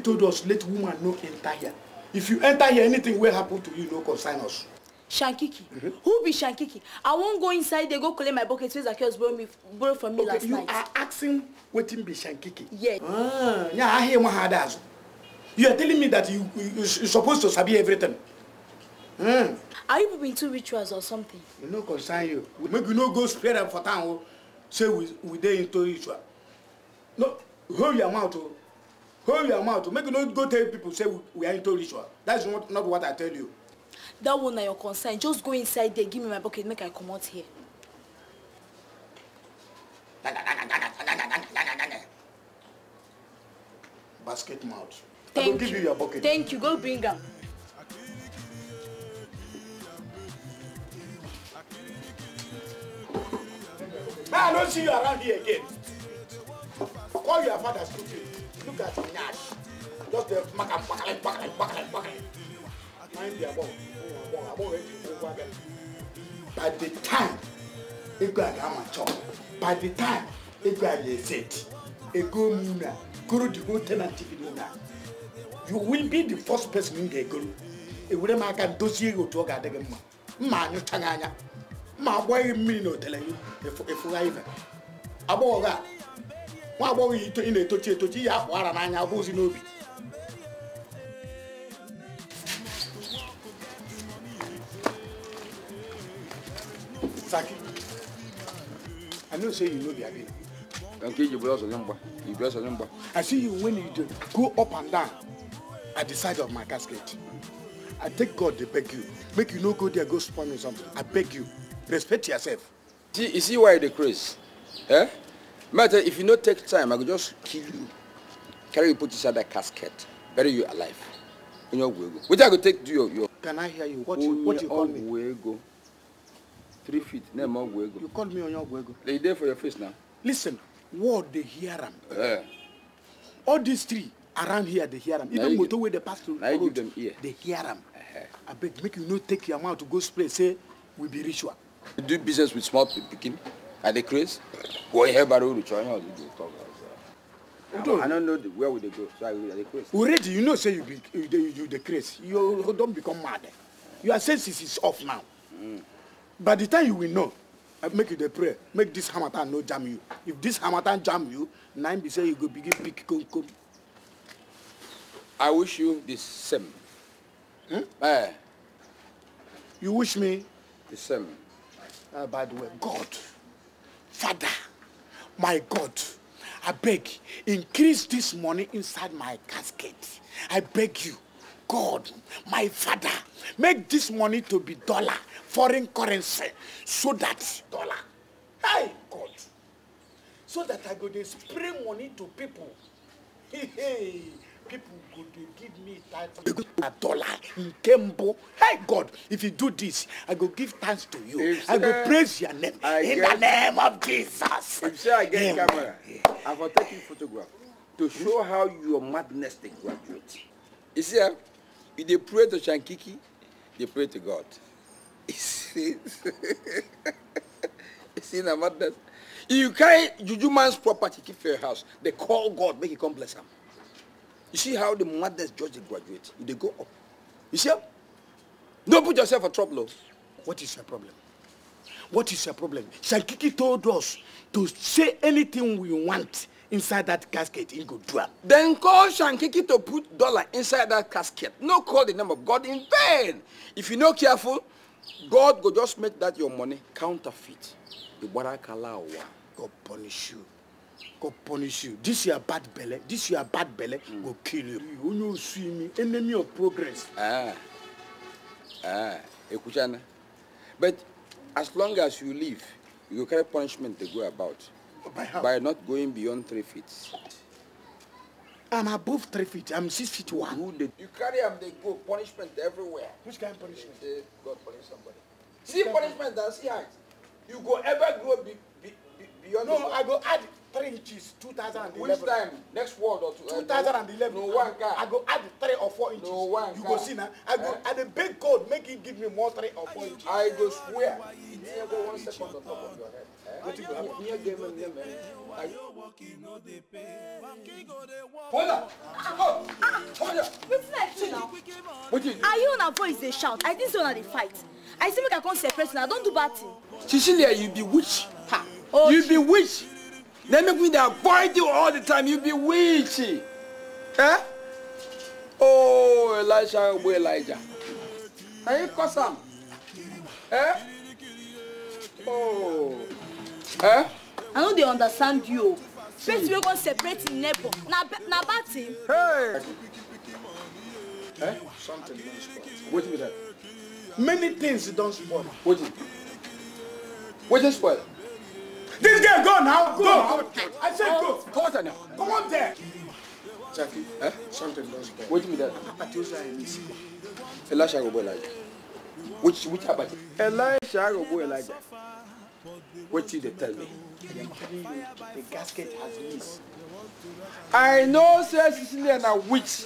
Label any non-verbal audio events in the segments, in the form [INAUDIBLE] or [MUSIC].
David told us, let woman no enter here. If you enter here, anything will happen to you, no consign us. Shankiki. Mm -hmm. Who be Shankiki? I won't go inside, they go collect my bucket so Zacchaeus borrow me borrow from me okay, last you night. You are asking what him be Shankiki? Yeah. Ah, yeah, I hear one hard You are telling me that you, you you're supposed to sabi everything. Mm. Are you being too rituals or something? We no consign you. make you no go spread them for town. Oh. Say we we dare into ritual. No, hold your mouth. Oh hold your mouth make you no go tell people say we are into ritual that is not, not what i tell you that one na your concern just go inside there give me my bucket make i comot here basket mouth thank i go give you your bucket thank you go bring am May I don't see you around here again. Call your father stupid. Look at me now. Just the mac and buckle and buckle Mind the above. Oh, above it. Over them. By the time, a guy got my chop. By the time, a guy is it. A go muna. Guru the go tenant muna. You will be the first person in the guru. otu ọ ga-adị gị mma anya ma mmiri na nwa agbọghọ ị na-etochi etochi iyi akpụ ara n'anya abụ ozi n'obi I know say you know the Abina. Nke Igbo ọsọ nye mgba, Igbo ọsọ nye mgba. I see you when you go up and down at the side of my casket. I take God dey beg you, make you no go there go spoil me something. I beg you, respect yourself. See, you see why they dey Eh? Matter if you not take time, I could just kill you. Carry you put inside that casket, bury you alive. In your way Which I could take to your, your. Can I hear you? What, you, what you call me? Way go. Three feet. No more way You called me on your way They there for your face now. Listen, what they hear them. Yeah. All these three around here they hear them. Even motor where they pass through road, them here. they hear them. Uh -huh. I beg make you not take your mouth to go spray say we be ritual. You do business with small picking. At craze? Well, here, but we try to talk. I don't know the, where would they go. So I will craze. Already, you know, say you be you, you, you the You don't become mad. Your senses is off now. Mm. By the time you will know, I uh, make you the prayer. Make this hamatan no jam you. If this hamatan jam you, nine be say you go begin pick come come. I wish you the same. Hmm? Eh. Uh, you wish me the same. Uh, by the way, God. Father, my God, I beg, increase this money inside my casket. I beg you, God, my Father, make this money to be dollar, foreign currency, so that dollar, hey God, so that I go to spray money to people. Hey, hey people go dey give me title a dollar in kembo hey god if you do this i go give thanks to you if i go praise your name I in get, the name of jesus if say i get yeah, camera yeah. i go take you photograph to show how your madness dey graduate you see ah you dey pray to shankiki dey pray to god [LAUGHS] you see [LAUGHS] you see na madness you carry juju man's property keep for your house dey call god make he come bless am You see how the mothers judge the graduate. They go up. You see? Don't put yourself in trouble. Oh. What is your problem? What is your problem? Shankiki told us to say anything we want inside that casket in Godua. Then call Shankiki to put dollar inside that casket. No call the name of God in vain. If you're not careful, God will just make that your money counterfeit. The God punish you go punish you this your bad belle this your bad belle mm. go kill you onye osu imi enemy of progress. ah ah ekuchana but as long as you live you go carry punishment dey go about by, how? by not going beyond three feet. I'm above three feet. I'm six feet one. Who did? You carry them, they go. Punishment everywhere. Which kind of punishment? They, they, God punish somebody. See punishment and see height. You go ever grow be, be, be, beyond. No, I go add three inches two thousand and eleven. which time next world or two. Uh, two thousand and eleven no one guy. i go add three or four inches. no one car you go see now. i go eh? add a big god make he give me more three or four inches. i go swear e near go one second on top of your head. wetin eh? go happen. near game and near man. Wonder! Oh! Wonder! Wetin now? you do? Ayo voice dey shout. I think say una they fight. I see make I come person. I don't do bad thing. Cecilia, you be witch. Ha! Oh, you be witch. They make me they avoid you all the time. You be witchy. Eh? Oh, Elijah, oh, boy Elijah. Are you cousin? Eh? Oh. Eh? I know they understand you. First, we're going to separate in neighbor. Now, now, bad thing. Hey! Eh? Something don't spoil. Wait a minute. Many things don't spoil. What is it? What is spoil? This girl, go now. Go. go. I said go. Come on there. Come on there. Jackie, eh? Something does bad. Wait a minute. Atosa Emisi. Elisha Robo Elijah. Which which Abati? Elisha Robo Elijah. What did they tell me? the gasket has missed. I know, sir Cecilia a witch.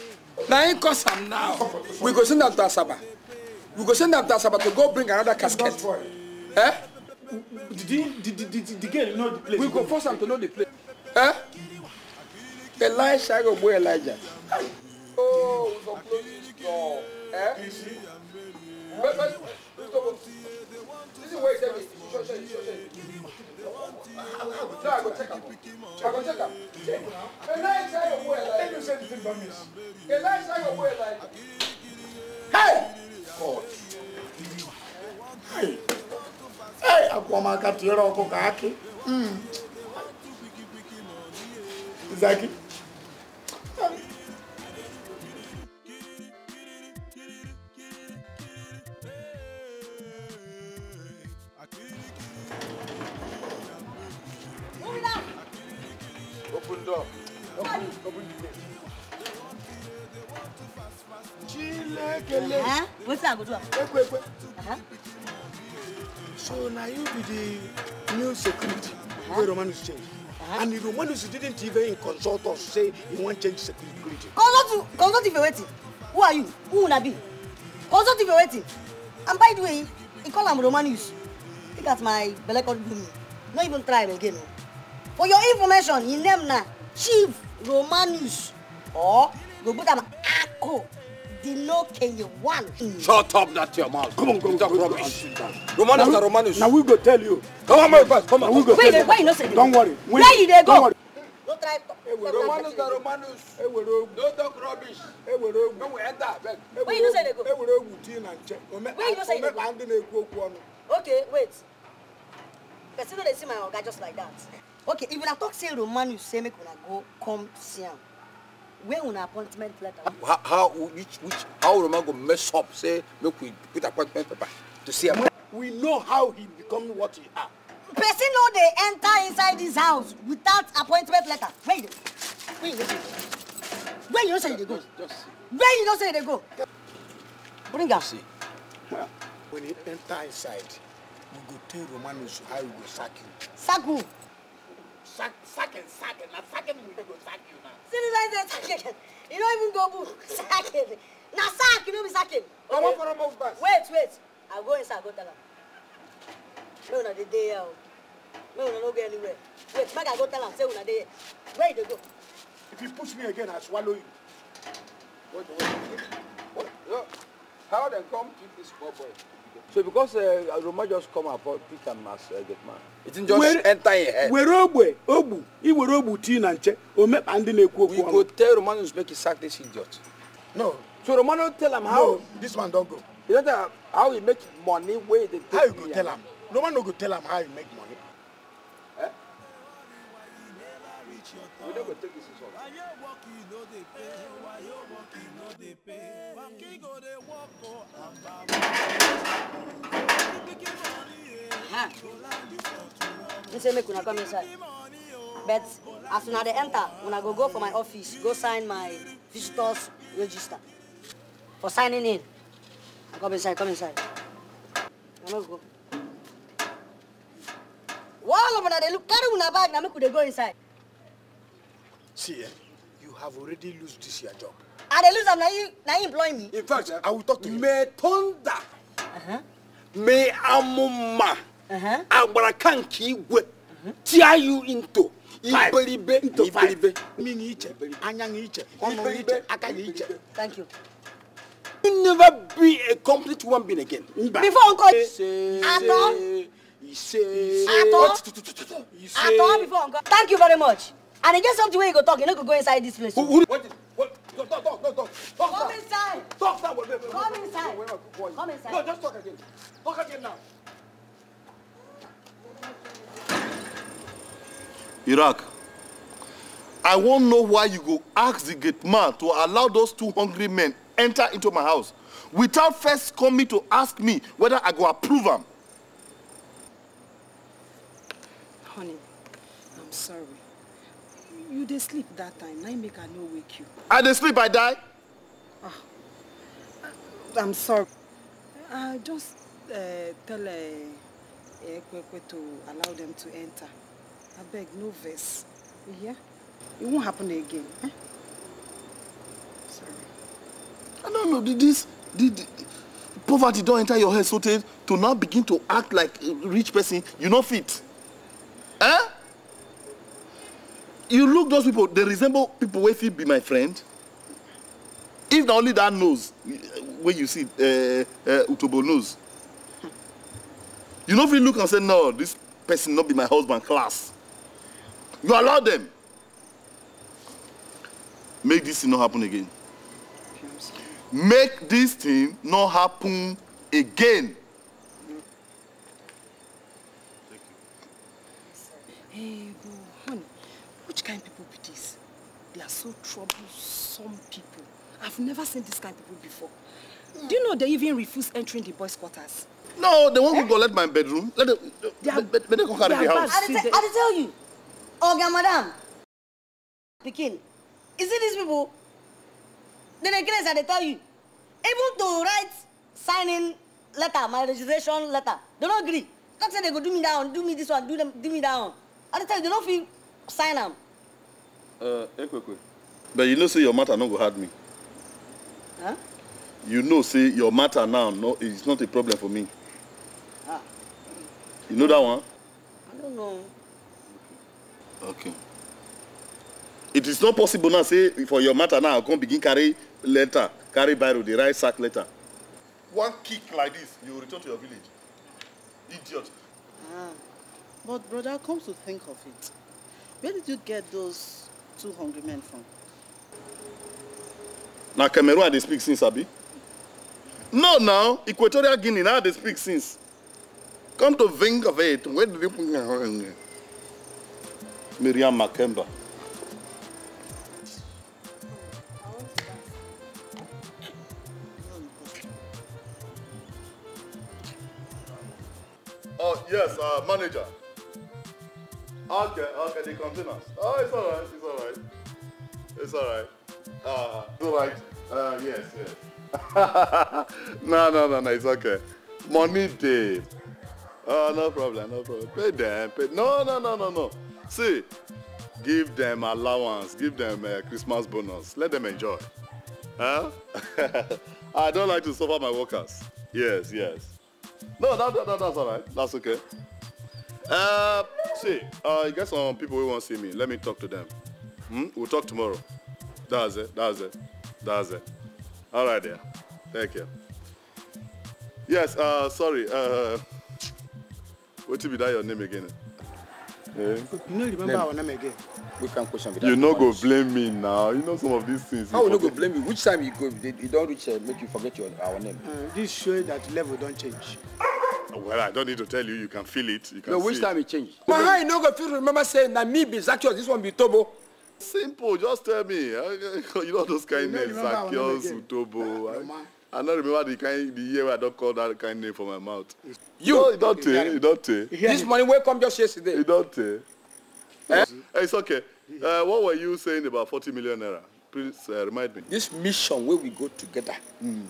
Now him cause am now. We go send am to Asaba. We go send am to Asaba to go bring another casket. Eh? the, the, the, the girl know the place. we go force am to know the place. Eh? elisha go boy elijah. oh we go close this door. Eh? wait wait wait stop this is where he tell me sure sure sure sure. no i go check am i go check am check elisha go boy elijah. tell me say the thing don miss. elisha go boy elijah. hey. God. Hey akuamaka tuyera wako kake mm. zaki Open door. Chile, kele. Huh? What's that? Good one. Ekwe, So now you be the new security uh-huh. where Romanus changed, Uh-huh. And the Romanus didn't even consult us say he won't change security. Consult consult if you're waiting. Who are you? Who will I be? Consult if you're waiting. And by the way, he call him Romanus. Think that's my belly called me. Not even try again. Oh. For your information, he name na Chief Romanus or go put him Ako. Dino Kenyewan. Shut up, That your mouth. Come on, come talk rubbish. Romanus, after Roman Now we go tell you. Come on, my boss, come on. We go Wait, why you not say Don't worry. Where you they go? Don't try to. Romanus na Romanus. Don't talk rubbish. Don't we enter, where you not say they go? Where you not say they go? Okay, wait. Person don't see my oga just like that. Okay, if you talk say Romanus, say make una go come see him where una appointment letter. how how which which how Roman go mess up say make we put appointment paper to see am. we know how he become what he are. person no dey enter inside this house without appointment letter where you dey you go where you know say you dey go where you know say you dey go bring am. when he enter inside we go tell romanus how he go sack you. sack who sack, sacking, sacking. Now sacking will go sack you now. Citizen sacking. You don't even go book. [LAUGHS] Sacking. Now sack, you know me sacking. Okay. I want for a move back. Wait, wait. I'll go inside, go tell him. No, no, the day out. Oh. No, no, no, go anywhere. Wait, make I go tell him. Say, una day. Where you go? If you push me again, I'll swallow you. Wait, wait, wait. What? How they come keep this poor boy? So because uh, Roma just come and pick him as uh, good man. It didn't just where, enter your head. Where Ogbe, Ogbu, he were Ogbu tea na nche, o me and na ekwu We go tell Romanos make he sack this idiot. No. So Romano tell him how no, this man don't go. You know how he make money where they take How you go tell him? Romano go tell him how he make money. Eh? We don't go take his pepe waki say make una come inside but as soon as they enter when I go go for my office go sign my visitors register for signing in i come inside come inside I'm no go. All of una dey look carry una bag Now make we dey go inside. see eh, you have already lost this your job i dey lose am na you na you employ me. in fact i will talk to you. may thunder uh-huh. may amuma uh-huh. agbara kan kì í gwe tear you into. iberibe iberibe mini iche anya ni iche ọnụ iche aka ni iche. thank you. you never be a complete human being again. before uncle atọ atọ atọ before uncle. thank you very much and e get something wey you go talk you no go go inside this place. Who, who, what? Go, talk, talk, talk, talk. talk Come down. inside. Talk down. Wait, wait, wait, Come wait, inside. Wait, wait, wait, wait. Come inside. No, just talk again. Talk again now. Iraq, I won't know why you go ask the gate man to allow those two hungry men enter into my house without first coming to ask me whether I go approve them. Honey, I'm sorry. you dey sleep that time na make i no wake you i dey sleep i die ah i'm sorry i just uh, tell ekpekpe eh, eh, to allow them to enter abeg no vex you hear It won't happen again eh sorry i no know did this did, did poverty don enter your head so tey to now begin to act like a rich person you no fit eh you look those people, they resemble people wey fit be my friend. If na only that nose When you see, uh, uh, Utobo nose, you no fit look and say, no, this person not be my husband class. You allow them. Make this thing not happen again. Make this thing not happen again. Hey, Which kind of people be this? They are so troublesome people. I've never seen this kind of people before. Mm. Do you know they even refuse entering the boys' quarters? No, they won't eh? go let my bedroom. Let them, they are, they, they, they can carry the house. I did, I tell you. Oga, madam. Pikin, Is it these people? Then again, I tell you, able to write signing letter, my registration letter, they don't agree. Talk say they go do me down, do me this one, do them, do me down. I tell you, they don't feel sign them. Uh, eh, But you know, say your matter not go hard me. Huh? You know, say your matter now, no, it's not a problem for me. Ah. You know that one? I don't know. Okay. It is not possible now, say, for your matter now, I come begin carry letter, carry biro, the right sack letter. One kick like this, you return to your village. Idiot. Ah. But brother, come to think of it, where did you get those two hungry men from. na cameroon they speak since abi no now equatorial guinea now they speak since come to think of it where did you miriam makemba. Oh, yes, uh, manager. Okay, okay, they contain Oh, it's alright, it's alright. It's alright. Uh, so uh, yes, yes. [LAUGHS] no, no, no, no, it's okay. Money day. Oh, no problem, no problem. Pay them, pay. No, no, no, no, no. See, give them allowance, give them a uh, Christmas bonus. Let them enjoy. Huh? [LAUGHS] I don't like to suffer my workers. Yes, yes. No, that, that that's all right. That's okay. Uh, see, uh, you got some people who want to see me. Let me talk to them. Hmm? We'll talk tomorrow. That's it. That's it. That's it. All right, there. Thank you. Yes, uh, sorry. Uh, what to be that your name again? Yeah. You know, remember our name again. We can question You no go blame me now. You know some of these things. How you no go blame me? Which time you go, you don't reach, uh, make you forget your our name. Uh, this show that level don't change. Well, I don't need to tell you. You can feel it. You can no, which see time it changed? My you no go feel. Remember saying that me be Zacchaeus. This one be Tobo. Simple. Just tell me. you know those kind names, Zacchaeus, Tobo. Ah, I, I don't remember the kind the year where I don't call that kind name from my mouth. You you don't You don't This money will come just yesterday. You don't Eh? It's okay. Uh, what were you saying about 40 million naira? Please uh, remind me. This mission where we go together. Mm.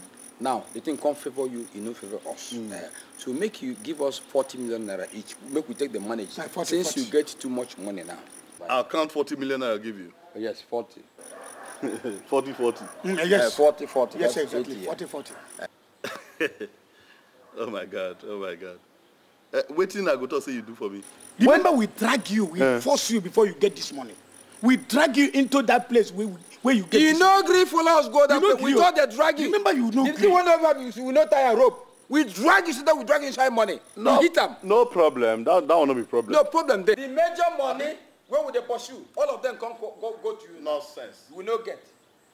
Now, the thing can't favor you, it no favor us. Mm. Uh, so make you give us 40 million naira each. Make we take the money. Like 40, Since 40. you get too much money now. But I'll count 40 million I'll give you. Oh, yes, 40. 40 40. Mm, yes. Uh, 40 40. Yes, That's exactly. 80, 40 40. oh my God. Oh my God. Uh, eh, waiting, I go to say you do for me. Remember, when? we drag you, we uh. force you before you get this money. We drag you into that place we where you get you no gree follow us go that way we just dey drag you remember you know. gree you one of us we no tie rope we drag you so that we drag you inside money no hit am no problem that that one no be problem no problem dey the major money wey we dey pursue all of them come go go, go to you nonsense you not get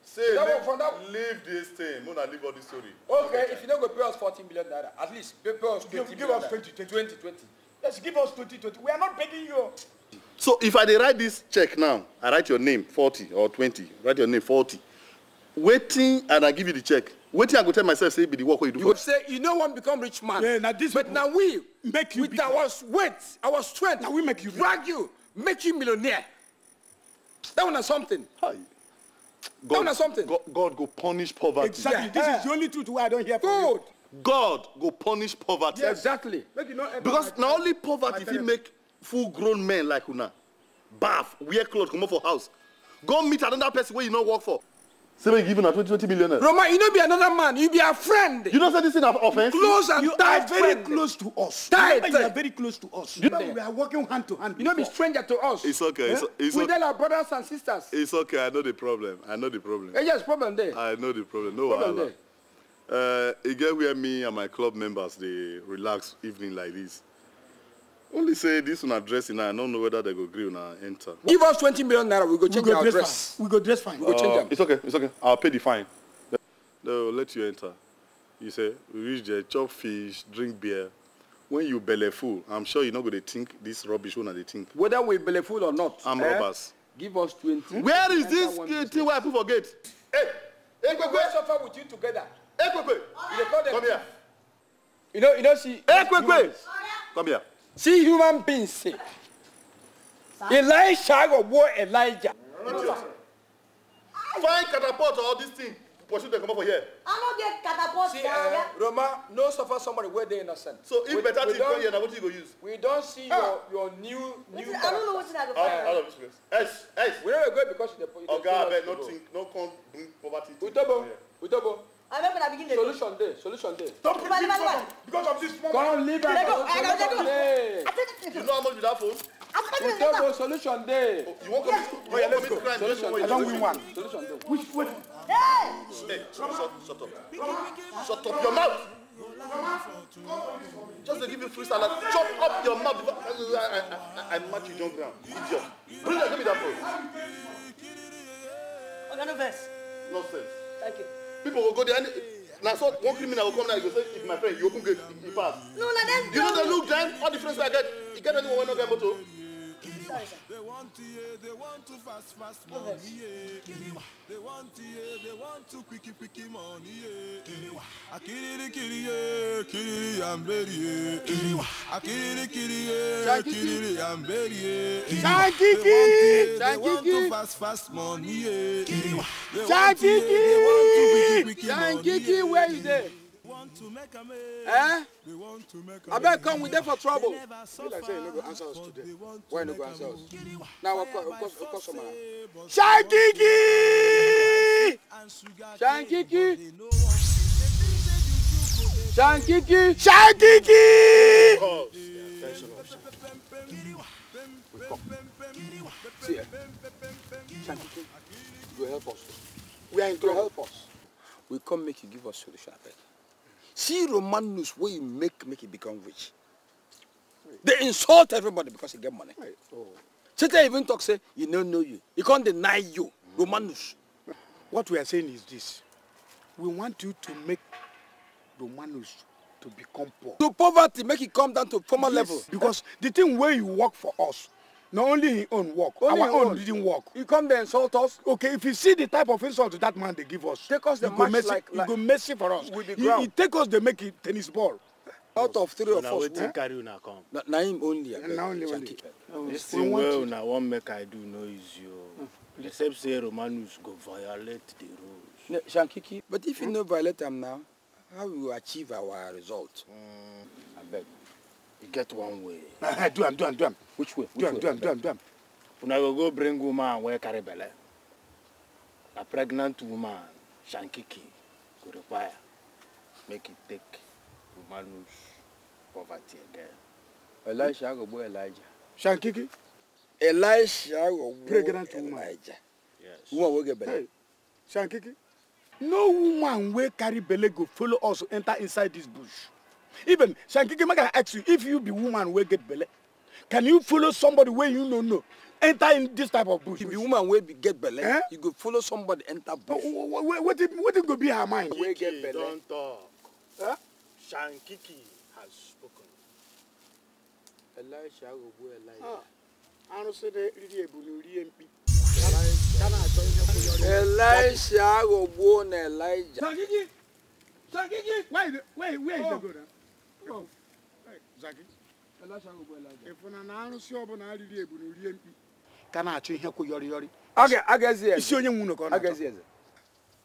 say that leave, one, that... leave this thing una leave all this story okay if you don't go pay us fourteen million naira at least pay, pay us twenty million give us twenty twenty twenty Let's give us twenty twenty we are not begging you. So if I dey write this check now, I write your name forty or twenty. write your name forty. Waiting and I give you the check. Waiting I go tell myself say be the work wey you do. You go say you no wan become rich man. Yeah, na this but na we make you with bigger. our weight, our strength, na we make you drag you, make you millionaire. That one na something. Hi. God, that one na something. God, God go punish poverty. Exactly. Yeah. This yeah. is the only truth wey I don hear from you. God go punish poverty. Yeah, exactly. because na only poverty fit make full grown men like una bath wear clothes, come comot for house go meet another person where you no work for say make you give una 20 20 million Roma you no be another man you be a friend. you know say this thing na offence. close and you tight friend. you are very close to us. tight you are very close to us. you know we are working hand to hand. you know, be stranger to us. it's okay. Eh? it's, it's we okay. tell our brothers and sisters. it's okay i know the problem i know the problem. eh yes problem there. i know the problem no problem There. Uh, e get where me and my club members they relax evening like this only say this una address, na i don't know whether they go agree gree una enter. give us twenty million naira we go change we go our dress. Fine. we go dress fine. we go change uh, them. it's okay it's okay I'll pay the fine. They'll let you enter you say we reach there chop fish drink beer when you belly full i'm sure you're not going to think this rubbish wey they think. whether we belly full or not. I'm eh? robbers. give us twenty. where is this thing wey i put for gate. hey ekpekpe we suffer with you together. Hey, you dey come here. you know you know see. ekpekpe come here see human beings say, Elisha go war Elijah. Find catapult or all these things. Pursue them come over here. I'm not get catapult. See, uh, Roma, no suffer somebody where they innocent. So if we, better thing come here, now what you go use? We don't see ah. your your new new. Is, I don't know what you what's to Out, out of this place. S S. We don't go because of the. Oh God, no think, no come bring poverty. We double. We double. I make una begin dey. Solution day. solution day. Don't put me for because of this small. Come leave Let go. I go Lego. You know how much be that phone? We tell oh, you solution dey. You wan come? Oh yeah, let's go. Solution. I don win one. Solution day. Which way? Hey! Hey, shut up, shut up. Shut up your mouth. Just to give you free salad, chop up your mouth before I, I, I, I match you John Brown. Idiot. Bring that, give me that phone. No Nonsense. Thank you people will go there. Now, so one criminal will come now, he go say, if my friend, you open gate, he pass. No, now that's You know the look then, all the friends I get, you get anyone when no get motor. They want to yeah, they want to fast fast money. Yeah. They want to yeah, they want to quicky quicky money. Yeah. Akiri kiri yeah, kiri I'm ready. Yeah. Akiri kiri yeah, kiri I'm ready. Yeah. Shankiki, they want to fast fast money. Yeah. Shankiki, Shankiki, where is it? Want to make a man. Eh? abeg come we dey for trouble be like say you no go answer us today why you no go answer us now our customer shankiki shankiki shankiki shankiki. We come. See, Shankiki, you help us. We are in trouble. help us. We come make you give us solution, I beg. See Roman news where you make make it become rich. They insult everybody because you get money. Right. Oh. Satan even talk say, you don't know you. He can't deny you. Mm. What we are saying is this. We want you to make Romanus to become poor. To poverty, make it come down to former yes, level. Because the thing where you work for us, Not only in own work. Only our own, own didn't work. He come there insult us. Okay, if you see the type of insult that man they give us, take us the match mercy, like, like go mercy for us. With the ground. He, he take us they make it tennis ball. Out of three of us, wetin carry una come? Na, na him only. Na only only. This thing wey una wan make I do no easy o. Oh. Hmm, Except say Romanus go violate the rules. Shankiki, but if you hmm? no violate am now, how we achieve our result? Mm, I beg. You get one way. [LAUGHS] Ah, do am, do am, do am. Which way? Which do am, do am, do am, do am. Una go go bring woman where carry belle. A pregnant woman, shankiki, go require make it take woman lose poverty again. Elisha go boy Elijah. Shankiki? Elijah. go Pregnant woman. Elijah. Yes. Woman wey get belle. Hey. Shankiki? No woman wey carry belle go follow us enter inside this bush even Shankiki I ask you if you be woman will get belly. Can you follow somebody where you no know? Enter in this type of bush. If you woman will get belly, eh? you go follow somebody enter bush. Oh, oh, oh, what, what, what, what it go be her mind? Shankiki, get belly. don't talk. Huh? Shankiki has spoken. Elisha will wear Elisha. Ah, Arụsị na-eri ebu na ori mkpi. Elisha ghọgbuo na Elijah. Shankiki! Shankiki! Where is the, where, where is the go ịfụna na na-arusi arụsị ọbụla arịrị ebu na rie mkpi ka na-achọ ihe kwụ yọrị yọrị isi onye nwunu ka ọ na-achọ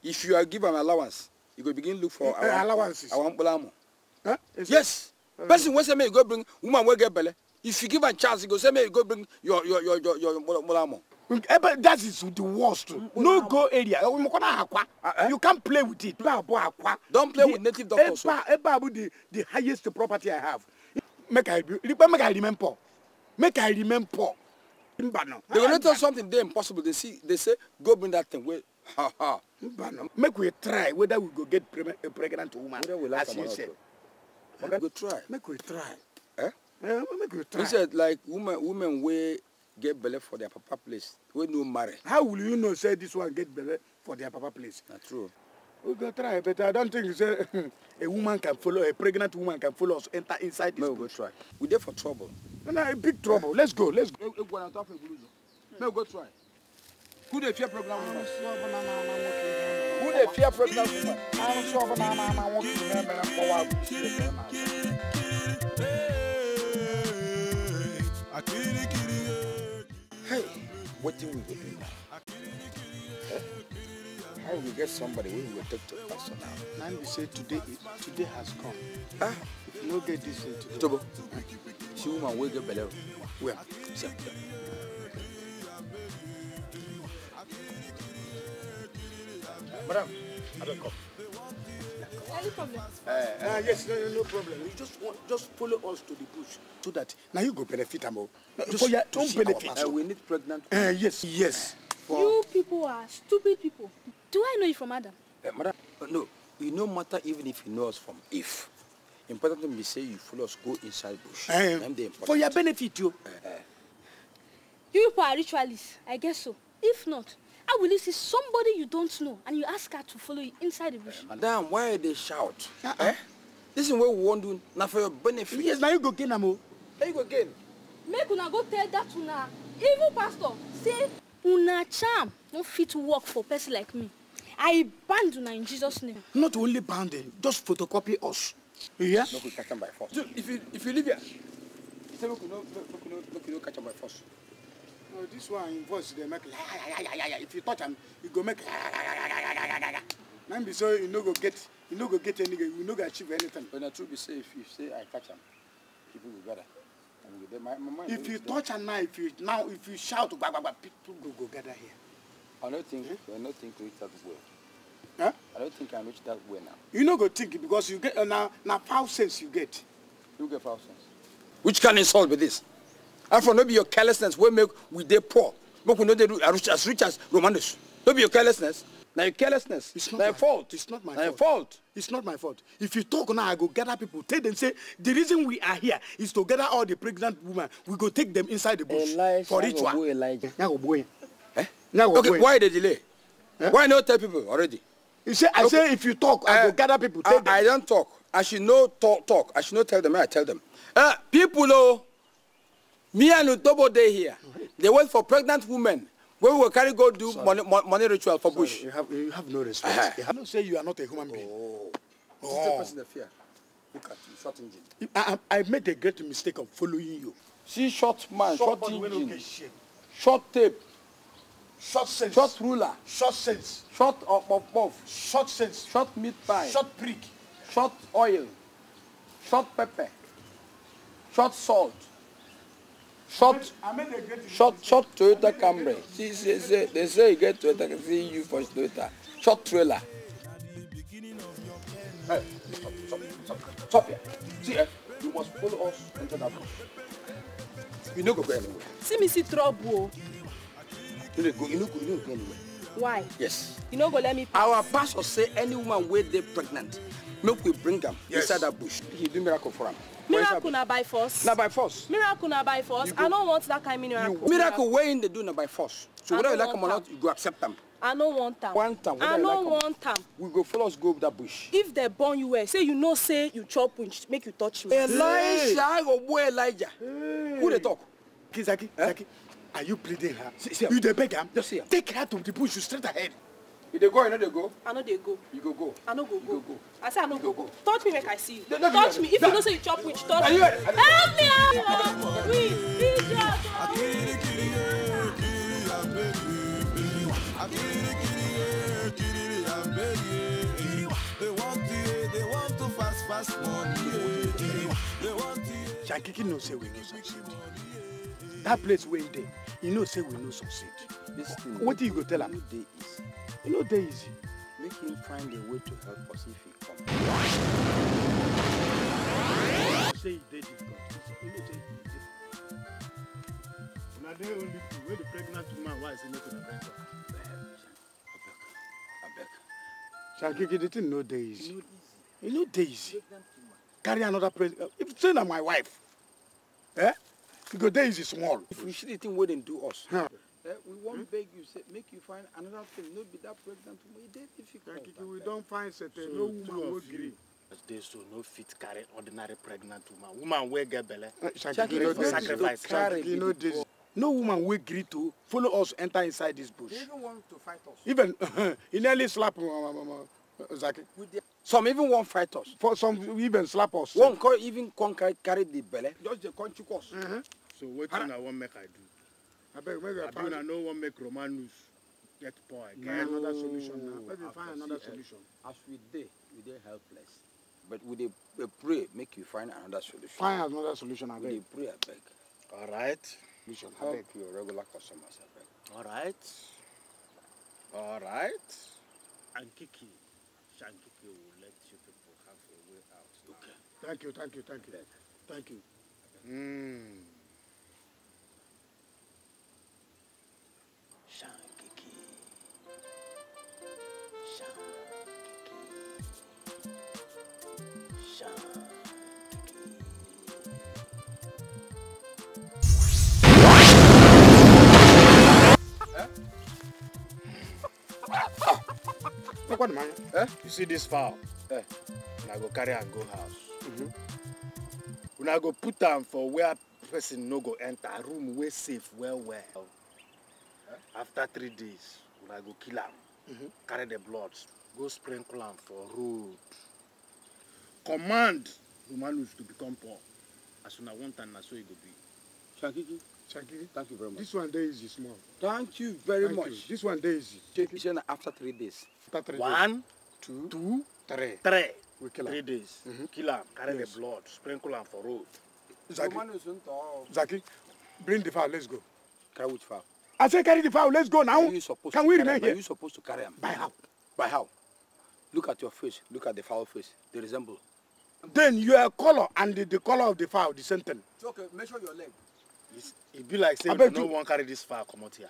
if you are give an allowance you go begin look for eh, eh, our allowances our mkpụrụ amụ yes person wey say make you go bring woman wey get belle if you give am chance you go say make you go bring your your your your mkpụrụ amụ ebe eh, that is the worst mm, no go area mokona oh, akwa uh-huh. you can't play with it ba bo akwa don't play with native doctors eba oh. eba bu the the highest property i have make i make i remember make i remember mbano they go tell ah, something dey impossible they see they say go bring that thing wey ha ha mbano make we try whether we go get a pregnant woman as you say go try make we try eh, eh make we try you said like woman woman wey get belle for their papa place wey no marry. how will you know say this one get belle for their papa place. na true. we go try but i don think say a woman can follow a pregnant woman can follow us enter inside this. may we go try we dey for trouble. na no, no, big trouble let's go let's go. egwu na top egwu lụzọ may we go try. who dey fear program? woman. who dey fear program? woman. arụsị ọbụla ama ama nwoke ihe mere mkpọwa agụ. wetin we go do now how we get somebody wey we go take to personal. na be say today today has come. ah no get this thing today. tobo see woman wey get belle where Sir. Madam, I abeg come no problem. Uh, uh, yes, no, no problem. You just want, just follow us to the bush so that now you go benefit them all Just your don't benefit. Uh, we need pregnant. Uh, yes, yes. For... You people are stupid people. Do I know you from Adam? Uh, madam, uh, no. You no matter even if you know us from if. Important thing be say you follow us go inside bush. Uh, for your benefit, you. Uh, uh. You people are ritualists. I guess so. If not, How will you see somebody you don't know and you ask her to follow you inside the bush? Uh, madam, why they shout? Uh -uh. Eh? This is what we want to do, now for your benefit. Yes, now you go again, Amo. Now you go again. Make una go tell that una, even pastor, say, una charm don't fit work for a person like me. I banned una in Jesus' name. Not only banned, just photocopy us. You hear? No, we catch them by force. If you, if you leave here, say, look, no, look, look, look, look, look, catch them by force. No, this one in voice dey make if you touch him, e go make na be so you no go get you no go get anything, you no go achieve anything. but na true be say if you say i catch him, people go gather my my if you touch am now if you now if you shout gbagbagba people go go gather here. i don't think hmm? i no think reach that way. Huh? I don't think I reach that way now. You no go think because you get uh, now now foul sense you get. You get foul sense. Which can insult with this? Afro, for no be your carelessness will make we dey poor. Make we no dey as rich as Romanus. No be your carelessness. Now your carelessness. It's not my fault. It's not my fault. fault. It's not my fault. If you talk now, I go gather people. Tell them say the reason we are here is to gather all the pregnant women. We go take them inside the bush Elijah, for ritual. Elijah. Eh? Okay, why the delay? Eh? Why not tell people already? You say I okay. say if you talk, I uh, go eh, gather people. Tell I, them. I don't talk. I should not talk, talk. I should not tell them. I tell them. Uh, people, oh. Me and Utobo Day here, they wait for pregnant women. Where we will carry go do money, money ritual for Sorry, bush. You have, you have no respect. Uh-huh. You have say you are not a human being. Oh. Oh. This person of fear. Look at you, short engine. I, I, made a great mistake of following you. See, short man, short, short engine, short tape, short sense, short ruler, short sense, short of of of, short sense, short meat pie, short prick, short oil, short pepper, short salt short, short, short Toyota Camry. See, see, see, they say you get Toyota, see you for Toyota. Short trailer. Hey, stop, stop, stop, stop here. See, eh? you must follow us into that bush. You no go go anywhere. See me see trouble. Oh. You no go, you no go, you no go anywhere. Why? Yes. You no go let me. Pass. Our pastor say any woman wey dey pregnant make we bring am yes. inside that bush he do miracle for am. miracle na by force. na by force. miracle na by force i no want that kind of miracle. You, miracle wey im dey do na by force so whether you like am or not you go accept am. I no want am. Want am. I no like want am. We go follow us go that bush. If they burn you well, say you know say you chop punch, make you touch me. Elijah, I go boy Elijah. Hey. Who they talk? Kizaki, Kizaki. Eh? Zaki, are you pleading her? See, see you the beg am? Just see her. Take her to the bush straight ahead you dey go or you no dey go. i no dey go. you go go. i no go go. go, i say i no go go. touch me make i see you. touch me if you know say you chop witch touch me. help me help me help me please help me. Shankiki know say we no succeed. That place where he dey, he know say we no succeed. do you go tell him? You know Daisy, Make him find a way to help us if he come. Say e dey difficult. E no dey easy. only two where the pregnant woman wise say make una bring her. Shall abeg. Shagigi, the thing no dey easy. E no dey easy. Carry another pregnant. Uh, if say na my wife, eh? Because go is small. If we see the thing wey dem do us. Huh. Eh, we won't hmm? beg you, say, make you find another thing. No, be that pregnant woman. It is difficult. Like, we don't find certain. So no woman will agree. They so no fit carry ordinary pregnant woman. Woman will get belly. Eh, sacrifice. Sacrifice. No woman will agree to follow us enter inside this bush. They even want to fight us. Even [LAUGHS] he nearly slapped uh, uh, uh, Zaki. Some even won't fight us. For some even slap us. Won't even carry the belly. Just the country course. Mm -hmm. So what can I want make I do? I beg, maybe I found. I know one make Romanus get poor. Get no. another solution now. Maybe find another solution. As we did, we did helpless. But we dey pray make you find another solution. Find another solution, I beg. We dey pray, I beg. All right. You should help your regular customers, I beg. All right. All right. Ankiki, Shankiki will let you people have a way out. Okay. Thank you, thank you, thank you. Thank you. Mm. Eh? Look what man. Eh? eh? You see this fowl? Eh? I go carry and go house. Mm -hmm. Una go put am for where person no go enter, room wey safe well well. Eh? After three days, when I go kill am. Mm -hmm. Carry the blood, go sprinkle am for road. Command Romanus to become poor. As soon I want and na so e go be. Shankiki. Shankiki. Thank you very much. This one there is small. Thank you very Thank much. You. This one there is. Take it Shana, after three days. After three one, days. One, two, two, three. Three. We kill Three days. Mm -hmm. Kill him. Carry yes. the blood. Sprinkle him for road. Zaki. Zaki, bring the fowl. Let's go. Carry which fowl? I say carry the fowl. Let's go now. Can we remain here? Are you supposed to carry him? By how? By how? Look at your face. Look at the fowl face. They resemble. Then your color and the, the color of the fowl, the same thing. okay. Measure your leg. It be like say you no wan carry this far come out here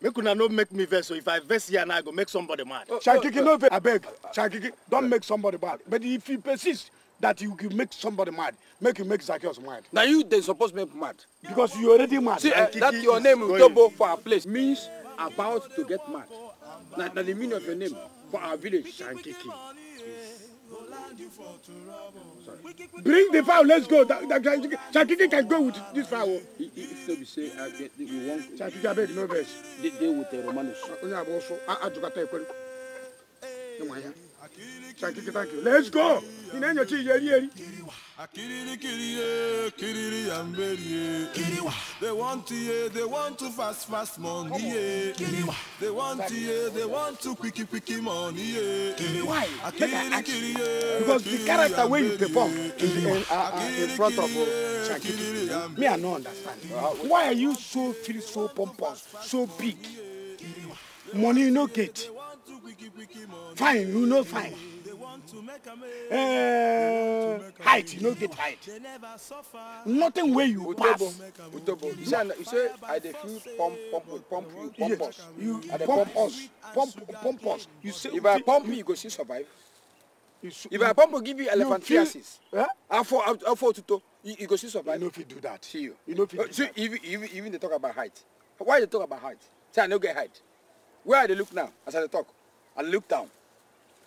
make una no make me vex so if i vex here now i go make somebody mad shakiki no vex abeg shakiki don make somebody mad but if you persist that you go make somebody mad make you make Zacchaeus mad. Now you then supposed make mad. because you already mad. see uh, that your name utobo for our place means about to get mad Now the meaning of your name for our village sankiki Bring the fowl, let's go. Shakiki can go with this fowl. If so, we say, I get the one. Shakiki, I beg no verse. They deal with the Romanos. I took a take. Thank you, thank you. Let's go. Ina enyocha iyeri eri. Akirikiriye, kiriri yamberiye. Kiriwa. They want to ye, they want to fast fast money ye. Kiriwa. They want to ye, they want to quicky quicky money ye. Kiriwa. Akirikiriye. Because the character wey you perform in the uh, uh, in front of uh, me, I no understand. Why are you so feel so pompous, so big? Money you no get fine you know, fine uh, height you no get height nothing wey you pass. utobo you say you say i dey feel pump pump pump you pump us you i dey pump us pump pump us you say if i pump you you go still survive if i pump give you elephantiasis afo afo otuto you go still survive. you no fit do that see you you no fit oh, do that see even even even dey talk about height why you dey talk about height say i no get height where i dey look now as i dey talk I look down.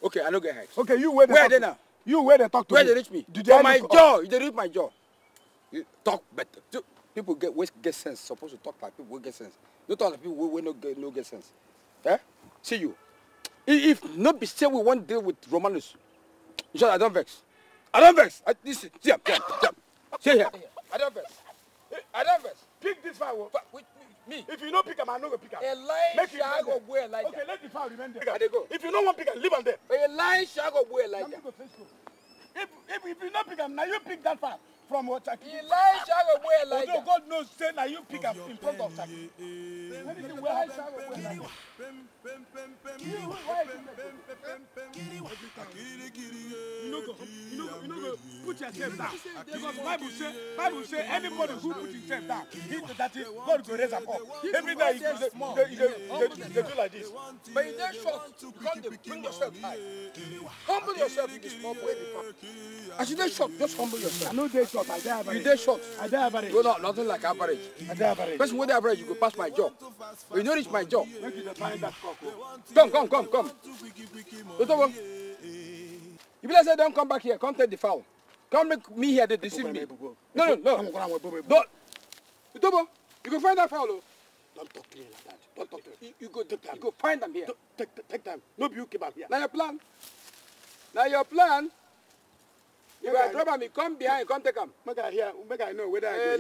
Okay, I no get head. Okay, you where they where talk they now? You where they talk to Where me? they reach me? Did they For my jaw, Did they reach my jaw. You talk better. People get wey get sense supposed to talk like people wey get sense. You talk like people will no get no get sense. Eh? See you. If, if no be say we won't deal with Romanus, you sure I don't vex. I don't vex. I, this, see, see, see, see, see here. I don't vex. I don't vex. Pick this fire. Me. If you no pick am, I no go pick am. Elisha go go Elijah. Okay, let the power remain there. They go. If you no want pick am, leave am there. Elisha go go Elijah. If if if you no pick am, now you pick that power from what Turkey. Elijah away Elijah. Although God knows, say Are you pick up in front of Turkey. You no you no Put yourself down. Because Bible say, Bible say, anybody who puts himself down, he, that is, God go raise up. Every day he goes, they, do like this. But in that short, God they bring yourself high. Humble yourself in this small way. As you that short, just humble yourself. No, they short. I dey average. You dey short. I dey average. No, no, nothing like average. I dey average. Person wey dey average, you go pass my job. you no reach my job. Make you dey find that cock. Oh. Come, come, come, come. Otobo, you be like say don come back here, come take the fowl. Come make me here They deceive me. No, no, no. Don't. Otobo, oh. you go find that fowl o. Oh. Don't talk to me like that. Don't talk to me. You, you go, take time. you go find them here. Take, take, take time. No you keep out here. Now your plan. Now your plan you are drop me. come behind come take him. make i hear make i know whether i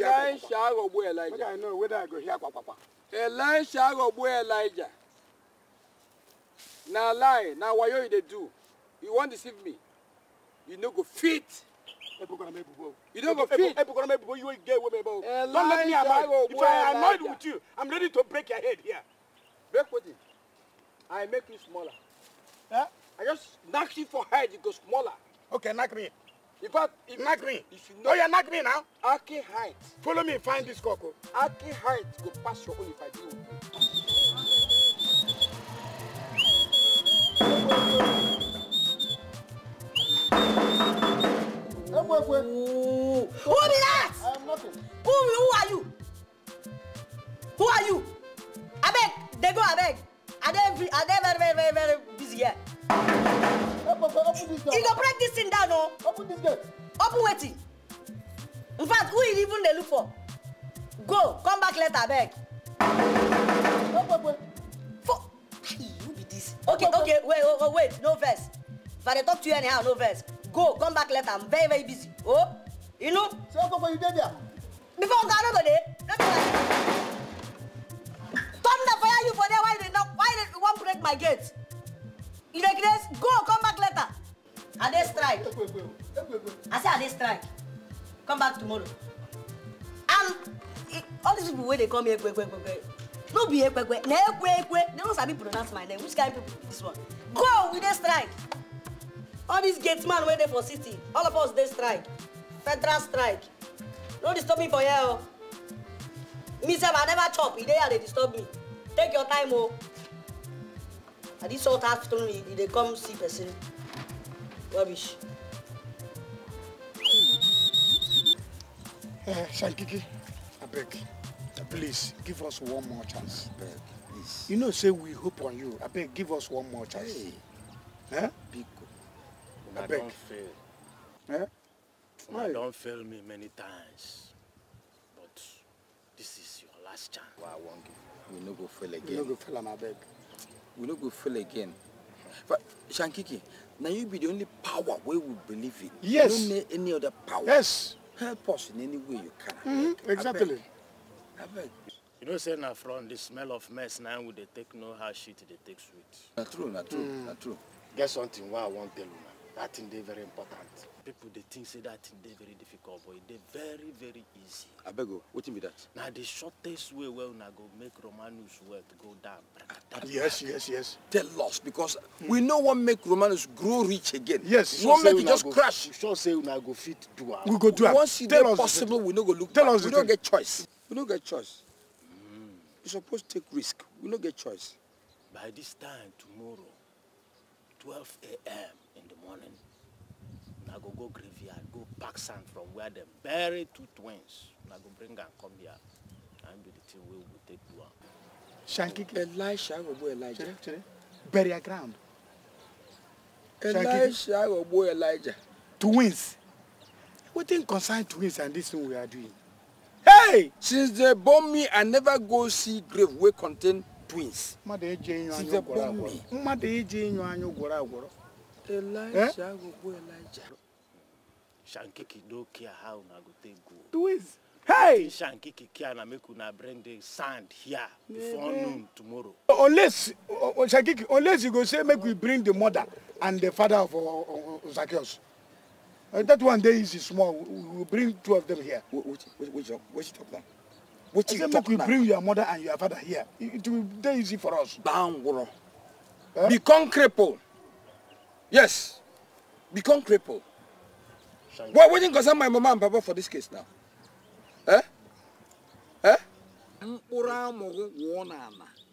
go hear kwakwa. go agogbu elijah. make i know whether i go here. hear kwakwa. go agogbu elijah Now lie na wayo you they do you wan deceive me you no go fit. You don't go fit. You get women, Don't let me annoy. If I annoyed with you, I'm ready to break your head here. Break what? I make you smaller. Huh? I just knock you for head, you go smaller. Okay, knock me. You got it. Nag me. If you know, oh, yeah, nag me now. Aki height. Follow me, find this cocoa. Oh. Aki height go pass your own if I do. Who be that? I'm am nothing. Who, who are you? Who are you? I beg. they go abeg. Are they, are they very, very, very, very busy here? you go break this thing down o. Oh. open this gate. open waiting. in fact who is even they look for. go come back later abeg. for ah, who be this. okay okay wait wait, wait no vex if i dey talk to you anyhow no vex go come back later i'm very very busy oh you know. say okoko you dey there. before oga no go dey no be like thunder fire you for there why did not? why did one break my gate. You Irregulars, go, come back later. I dey strike. I say I dey strike. Come back tomorrow. And all these people wey dey call me ekwe ekwe ekwe no be ekwe ekwe na ekwe ekwe they no sabi pronounce my name which kind people be this one. Go, we dey strike. All these gate man wey dey for city, all of us dey strike. Federal strike. No disturb me for here o. Oh. Me sef I never chop, e dey here dey disturb me. Take your time o. Oh na this old afternoon e dey come see person rubbish. Uh, Shankiki, I beg, please give us one more chance. I beg, please. You know, say we hope on you. I beg, give us one more chance. Hey. Huh? Eh? Big. I, I beg. don't fail. Huh? I don't fail me many times. But this is your last chance. Well, I won't give. We no go fail again. We no go fail, I beg we no go fail again but shankiki now you be the only power where we believe in yes you no need any other power yes help us in any way you can mm -hmm. exactly abeg you know say now, from the smell of mess Now, we they take no how shit they take sweet na true na true mm. na true get something wey i want tell you, una that thing they very important people they think say that thing dey very difficult but e very very easy. I beg you, what wetin be that. Now the shortest way wey una go make romanus wealth go down. yes yes yes. tell us because hmm. we know what make romanus grow rich again. yes we wan make it just go, crash. we sure say una go fit do am. we go do am once e dey possible we no go look tell back us we no get choice we no get choice. Mm. we suppose take risk we no get choice. by this time tomorrow twelve a.m. in the morning. I go go graveyard, go pack sand from where them bury two twins. I go bring and come here. And be the thing we will take to am. Shanky Elisha Obo Elijah. bury a ground. Elisha Obo Elijah. Twins. We didn't concern twins and this thing we are doing? Hey! Since they born me, I never go see grave where contain twins. Since they enyo me, gwọrọ agwọrọ. Mmadụ Elijah shankiki no care how una go take go who is hey shankiki care na make una bring the sand here before yeah. noon tomorrow unless uh, shankiki unless you go say make we bring the mother and the father of uh, uh, Zacchaeus uh, that one day is small we will bring two of them here which which which, which talk now which you talk now bring your mother and your father here it will be easy for us bangoro huh? become cripple yes become cripple Why wouldn't concern my mama and papa for this case now? Eh? Eh?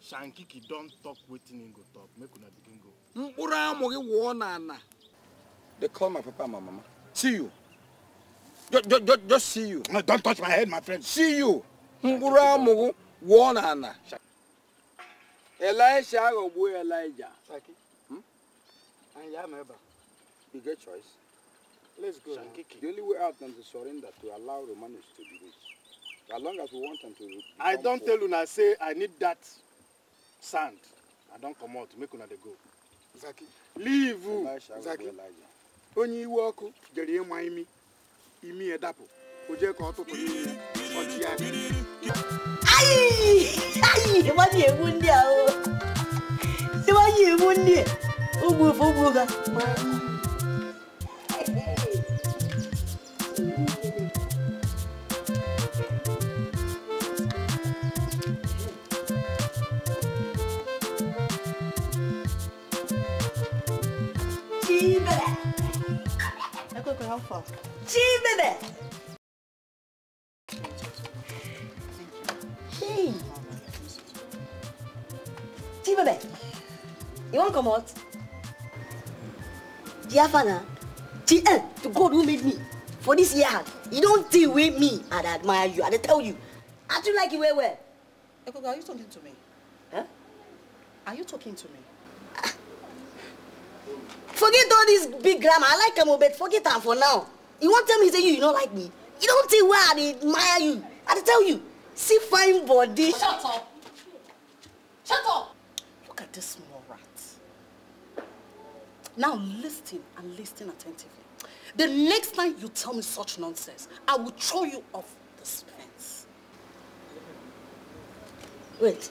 Shankiki don't talk waiting in go talk. Make una begin go. They call my papa and my mama. See you. Just, just, just see you. No, don't touch my head, my friend. See you. Mpura wonana. Elisha go boy Elijah. Shaki. Hmm? And Yameba. You get choice. Let's go. Shankiki. The only way out is to surrender to allow Romanos to do this. As long as we want them to. I don't poor. tell una say I need that sand. I don't come out. Make una dey go. Zaki. Leave. Zaki. Onye iwe ọkụ jere ịma imi imi edapụ o jee ka ọ tụtụ n'ihu ọchị ya. Ayi! Ayi! Ịmanye egbu ndị a o! Ịmanye egbu ndị a! Ogbu ofe ogbu ga. for helpful. Gee, minute! Gee! Gee, baby! You won't come out? Dear father, GL, eh, to God who made me for this year, you don't deal with me and I admire you and I tell you. I do like you well well. Ekoga, are you talking to me? Huh? Are you talking to me? Forget all this big grammar. I like him, but forget that for now. You won't tell me, say you, you don't like me. You don't tell why I admire you. I tell you, see fine body. Shut up. Shut up. Look at this small rat. Now listen and listen attentively. The next time you tell me such nonsense, I will throw you off this fence. Wait.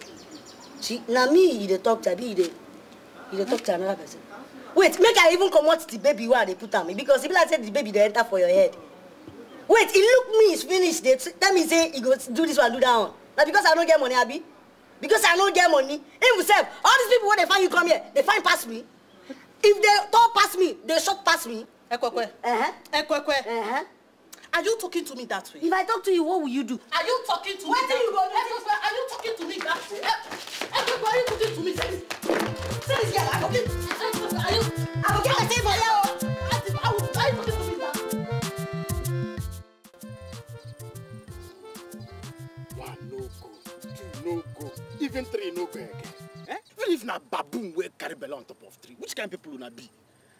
She, now me, you talk to me, you talk to another person. wait make i even come comot the baby wey they put on me? because e be like the baby they enter for your head wait he look me finished dey Let me say he go do this one do that one Now because i no get money Abby. because i no get money himself. all these people when they find you come here they find past me if they talk past me they shot past me. ekwekwe uh-huh. ekwekwe uh-huh. are you talking to me that way. if i talk to you what will you do. are you talking to What me that way ekwekwe are you talking to me that way ekwekwe are you talking to me Serious girl, I forget. I forget One no go, two no go, even three no go Eh? What eh? if na baboon wey carry belle on top of tree? Which kind of people una be?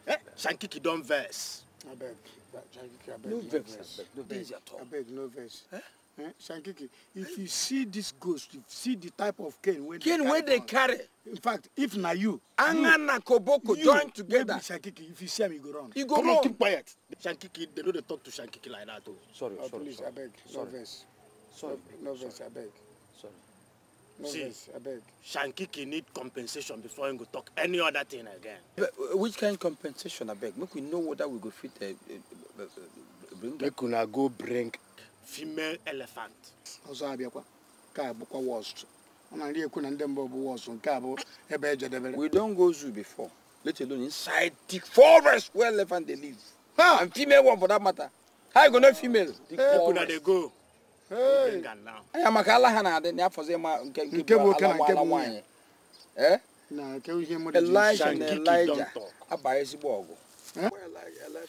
Eh? Shankiki don verse. No verse. No verse no verse. Eh? eh, shankiki if you see this ghost you see the type of cane wey cane wey they carry in fact if na you anga na koboko join together shankiki if you see am you go run you go Come run on, keep quiet shankiki they no dey talk to shankiki like that Oh, sorry oh, sorry please, sorry abeg no sorry no vex abeg sorry no I beg. shankiki need compensation before he go talk any other thing again. But, uh, which kind of compensation beg? make we know whether we go fit uh, uh, uh, bring. make una go bring female elephant. ọzọ abịakwa nke bụkwa wọst ọ na nri ekwu na ndị mba bụ wọst nke a bụ ebe ejedebere. we don go zoo before let alone inside the forest where elephant dey live ha and female one for that matter how you go know female. the forest dey go. anya maka ala ha na-adị na ma nke nke bụ ala nwa ala nwaanyị. Eh? na nke ihe mmadụ ji shanki kidọm tọk. elijah na elijah abaghị ezigbo ọgụ. Eh?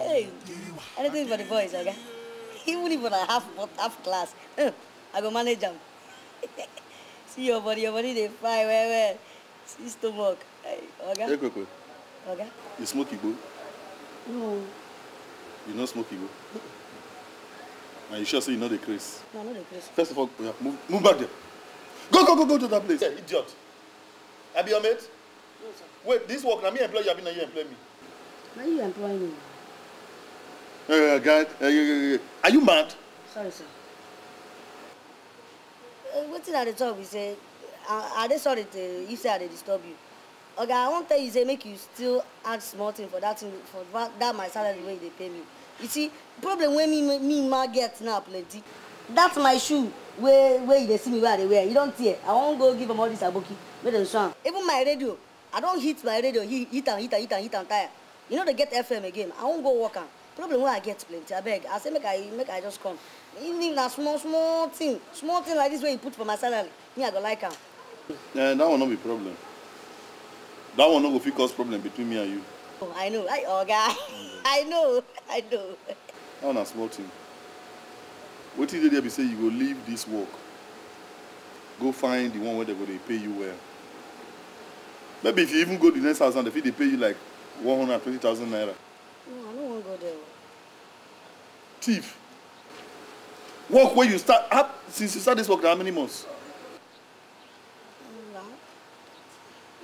Hey, anything for the boys, okay? [LAUGHS] Even if I half half class, [LAUGHS] I go manage them. [LAUGHS] See your body, your body they fly where where? See stomach. Hey, okay? Hey, Coco. Okay? You smoke Igbo? No. You not smoke Igbo? And you sure say you know the craze? No, not the craze. First of all, yeah, move, move back there. Go, go, go, go to that place. Yeah, idiot. I be your mate? No, sir. Wait, this work, now me employ you, I be mean, you employ me. Now you employ me. Uh, God, uh, are you mad? Sorry, sir. Uh, wetin i dey talk be say i they sorry tey if say i dey disturb you Okay, i won't tell you say make you still add small thing for that thing for that my salary wey you dey pay me you see problem when me me ma get now plenty That's my shoe where where they see me where they wear. You don't see it. i won't go give them all this aboki make dem sew even my radio i don't hit my radio hit and hit and hit and hit and tire You know they get fm again i won't go work am problem wey i get plenty abeg i say make i make i just come even if na small small thing small thing like this wey you put for my salary me i go like am. Eh, that one no be problem that one no go fit cause problem between me and you. Oh, i know i oga okay. i know i know. that one na small thing wetin dey there be say you go leave this work go find the one wey dey go dey pay you well maybe if you even go the next house now they fit dey pay you like one hundred and twenty thousand naira don't go there. Thief. Work where you start up since you start this work how many months?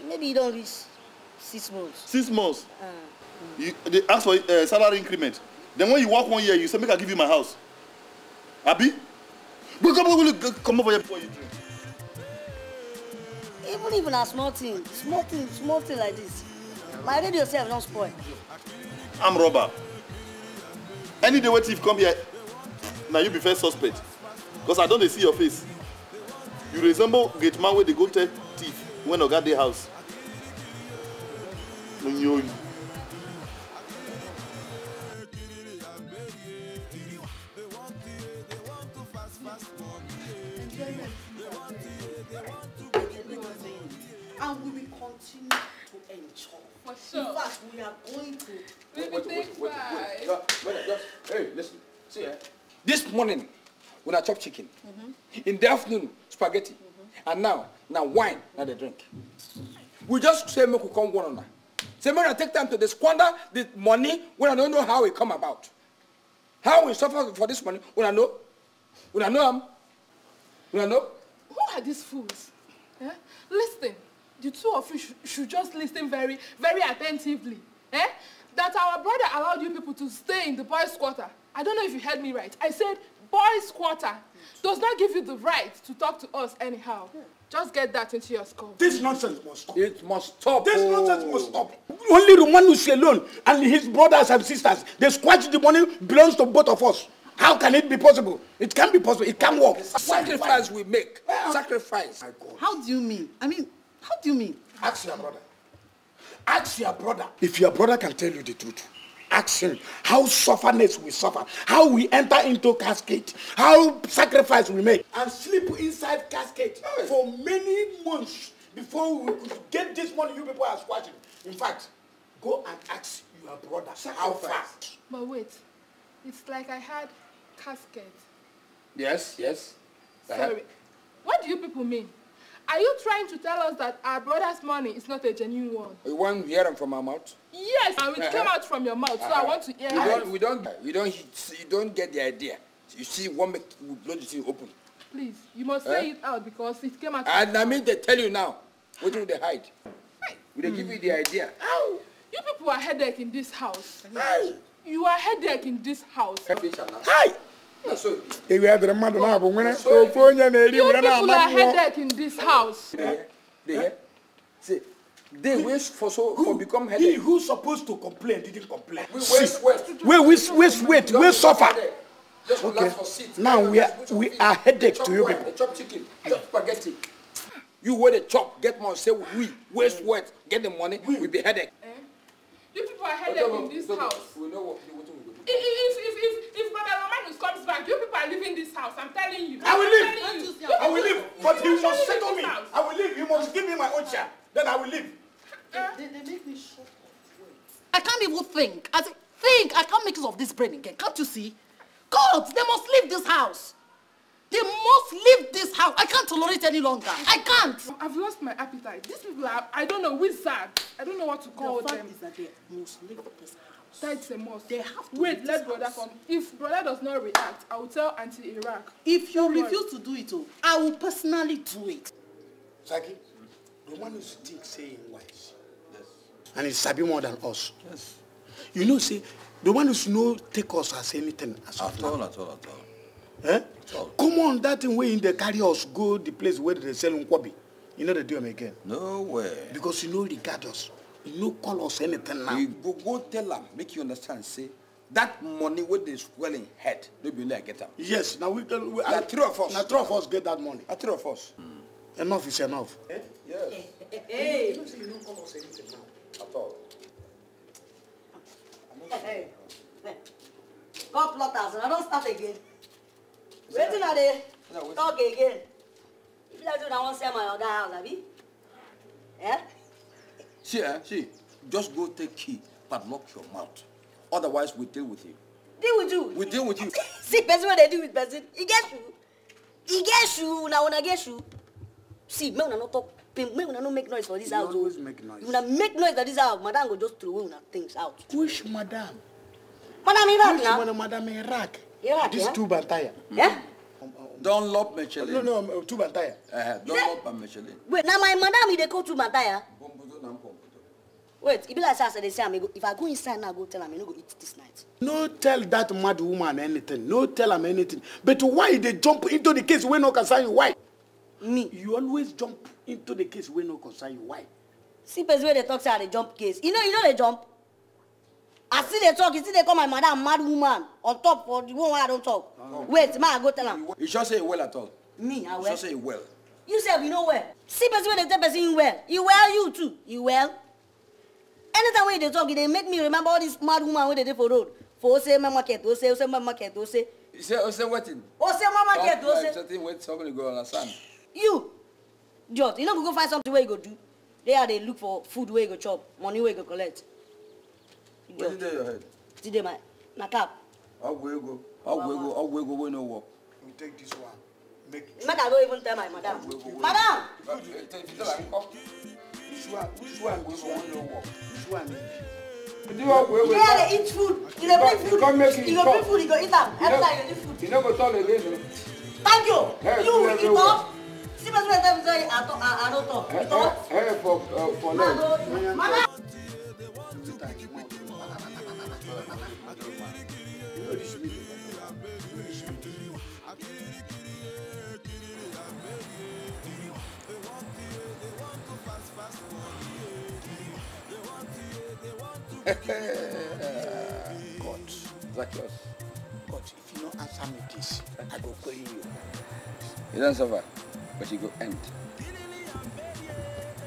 Maybe you don't reach six months. Six months? Uh, you, they ask for uh, salary increment. Then when you work one year, you say, make I give you my house. Abi? Come, come over here before you drink. Even even a small thing, small thing, small thing like this. My radio self don't spoil. I'm robber. Any day when thief come here, now you be first suspect. Because I don't see your face. You resemble gate man where they go tell thief when Oga the house. This morning, when I chop chicken. Mm -hmm. In the afternoon, spaghetti. Mm -hmm. And now, now wine, now they drink. We just say make we come one another. Say make I take time to squander the money when I don't know how it come about. How we suffer for this money when I know. When I know him. When I know. Who are these fools? Eh? Listen, the two of you sh should just listen very, very attentively. Eh? That our brother allowed you people to stay in the boys' quarter. I don't know if you heard me right. I said boys' quarter does not give you the right to talk to us anyhow. Just get that into your skull. This nonsense must stop. It must stop. This oh. nonsense must stop. Only Romanus alone and his brothers and sisters, they squash the money belongs to both of us. How can it be possible? It can be possible. It can work. Sacrifice we make. Well, uh, Sacrifice. How do you mean? I mean, how do you mean? Ask your brother. Ask your brother. If your brother can tell you the truth, action, how sufferness we suffer, how we enter into casket, how sacrifice we make. And sleep inside casket for many months before we could get this money you people are squashing. In fact, go and ask your brother sacrifice. how fast. But wait, it's like I had casket. Yes, yes. Sorry. What do you people mean? Are you trying to tell us that our brother's money is not a genuine one? You want to hear them from our mouth? Yes, and it uh -huh. came uh-huh. out from your mouth, so uh -huh. I uh-huh. want to hear. We it. don't, we don't, we don't, you don't get the idea. You see, one make will blow the thing open. Please, you must uh -huh. say it out because it came out. And I mean, they tell you now. What do they hide? Will they mm. give you the hmm. idea? Ow. You people are headache in this house. Hey. You are headache in this house. Hey. Hi. ewu adịrị mmadụ na-abụ nwere ofu onye na-eri were na-ama mmụọ They wish for so who, for become headache. He who's supposed to complain didn't complain. We waste, waste. We waste, wait, we suffer. Just okay. for Now we are we are headache to you people. Chop chicken, chop mm. spaghetti. You wear the chop, get money, say we waste, mm. wait, get the money, we be headache. Eh? You people are headache in this house. If, if, if, if Brother Romanus comes back, you people are leaving this house. I'm telling you. I will leave. You. I will leave. But he must settle me. House. I will leave. You must give me my own chair. Then I will leave. Uh, they, they, make me shut I can't even think. I think I can't make use of this brain again. Can't you see? God, they must leave this house. They must leave this house. I can't tolerate any longer. I can't. I've lost my appetite. These people are, I don't know, wizards. I don't know what to call the fact them. Is that they must leave this house. That's a must. They have to Wait, let brother house. come. If brother does not react, I will tell Auntie Iraq. If you Don't refuse worry. to do it, oh, I will personally do it. Saki, the one who thinks saying wise. Yes. And he's sabi more than us. Yes. You know, see, the one who's no take us as anything. As at all, at all, at all. Eh? Come on, that thing where in they carry us go the place where they sell nkwabi. You know they do them again. No way. Because you know they regard us no call us anything now. we go go tell am make you understand say that money wey dey swelling head no be only i get them. yes Now we can we na three of us na three of us get that money. na three of us. Mm. enough is enough. Eh? yes. [LAUGHS] hey. you know say you no call us anything now. at all. Hey, [LAUGHS] hey. God plotters and I don't start again. wetin i dey talk again. if you like do na wan sell my other house Abby. Eh? See, eh? see, just go take key, but lock your mouth. Otherwise, we deal with you. Deal with you? We deal with you. [LAUGHS] see, person what they deal with person. He gets you. He gets you. Now when I get you. See, me una not talk. Me una not make noise for this you house. Oh. always make noise. Una make noise for this house. Madam go just throw things out. Which madam? Madam Iraq Which now? Madam Iraq. Iraq, This yeah? tube and Yeah? Dunlop Michelin. No, no, two Mantaya. Uh, eh, Dunlop and Michelin. Wait, now my madam, they go to Mantaya. Wait, it be say if I go inside now, go tell him not going to eat this night. No tell that mad woman anything. No tell him anything. But why they jump into the case when no concern you? Why? Me. You always jump into the case when no concern you. Why? See, person where they talk say I jump case. You know, you know they jump i see they talk You see they call my mother a mad woman on top for the one why i don't talk no, no. wait ma i go tell him. you sure say well at all. me i well. you sure say well. you say you know well see person when they tell person you well you well you too you well. anytime wey you dey talk they e make me remember all these mad woman when they did for road for ose market ose ose market say. you say ose wetin. my market ose. talk like something wey somebody go understand. you jot you know go go find something where you go do there i dey look for food where you go chop money where you go collect. Wetin dey your head? Wetin dey my na cap. go? ego ọgwụ ego ọgwụ ego wey no work. You take this one. Make it. Make go even tell my madam. Madam! Which one? Which one Which one Which one? Do ọgwụ ego. Yeah, eat food. You dey bring food. You go bring food, you go eat am. Every time you dey food. You no go talk again o. Thank you. You will eat up. See my friend, tell me say I don't talk. You talk. Hey, for uh, for leg. Madam. God, Zacchaeus. God, if you don't answer me this, I go kill you. It doesn't suffer, but it will end.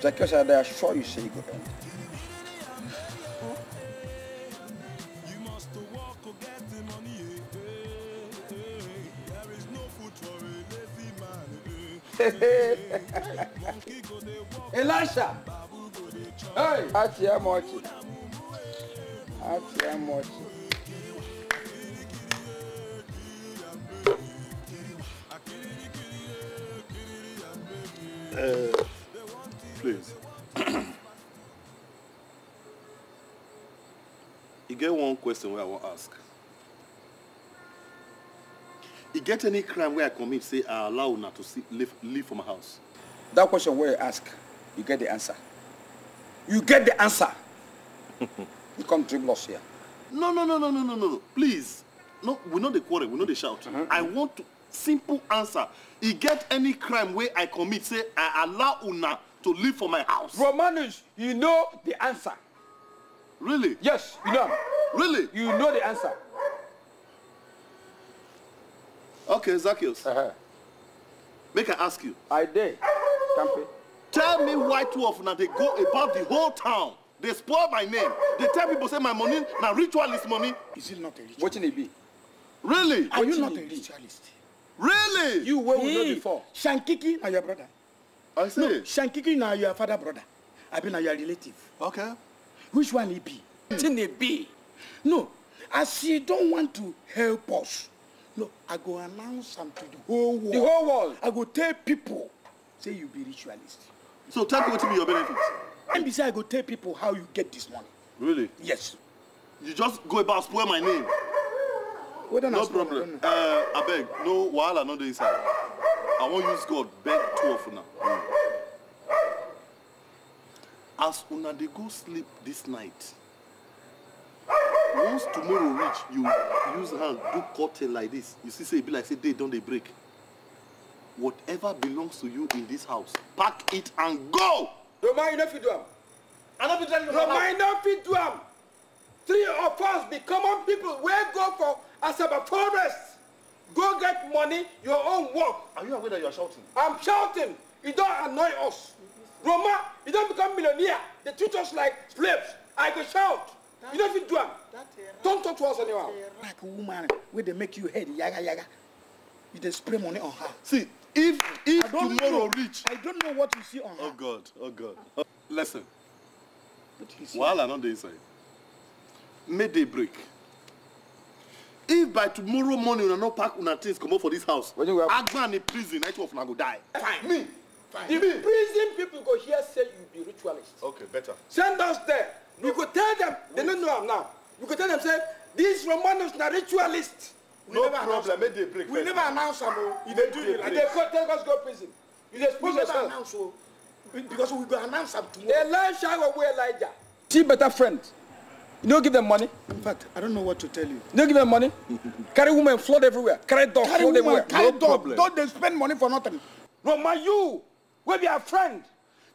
Zacchaeus, I assure you, say you go end. [LAUGHS] Elisha. Hey. Ati ya mochi. Ati ya mochi. Uh, please. [CLEARS THROAT] you get one question where I want ask e get any crime wey i commit say i allow una to see, leave, leave for my house. that question wey you ask you get the answer you get the answer [LAUGHS] you come dribble us here. no no no no no no no please no we no dey quarrel we no dey shout uh -huh. i want to, simple answer e get any crime wey i commit say i allow una to live for my house. romanus you know the answer. really. yes you know am. really. you know the answer. Okay, Zacchaeus. Uh-huh. Make I ask you. I did. Campy. Tell me why two of now they go about the whole town. They spoil my name. They tell people say my money now ritual is money. Is it not a What can it be. Really? Are, you, not a ritualist? Really? You where we know before. Shankiki are your brother. I see. No, Shankiki now your father brother. I be now your relative. Okay. Which one he be? What can Tine be. No, as she don't want to help us. No, I go announce am to the whole world. The whole world. I go tell people, say you be ritualist. So tell people to be your benefits. And be I go tell people how you get this money. Really? Yes. You just go about spoil my name. Well, no problem. Uh, I beg, no wahala no dey inside. I won't use God beg two of now. Mm. As una dey go sleep this night, once tomorrow reach you use hand do cutting like this you see say e be like say day don dey break whatever belongs to you in this house pack it and go. roma you no fit do am. i no fit tell you roma you no fit do am. three of us be common people wey go for asaba forest go get money your own work. are you aware that you are shouting. i'm shouting e don annoy us roma you don become millionaire dey treat us like slaves i go shout you no fit do am don talk to us anymore. like a woman where they make you head yaga yaga you just spray money on her. see if if tomorrow know, reach. i don't know what you see on oh her. oh god oh god oh, listen wahala no dey inside mayday break if by tomorrow morning are not pack una things comot for this house agban in prison I each of una go die. fine me fine. the prison people go here say you be ritualist. okay better. send us there. You could tell them, they don't know him now. You could tell them, say, these Romanos are ritualists. We no never problem, make they break. We never announce them. Oh. they do, they, they could tell us go prison. You just put yourself. announce, so, oh. because we go announce them tomorrow. Elisha will wear Elijah. See better friend. You don't give them money. In fact, I don't know what to tell you. You don't give them money. [LAUGHS] carry women, flood everywhere. Carry dogs, carry flood woman, everywhere. Carry no dog. Problem. Don't they spend money for nothing. No, my you, we be a friend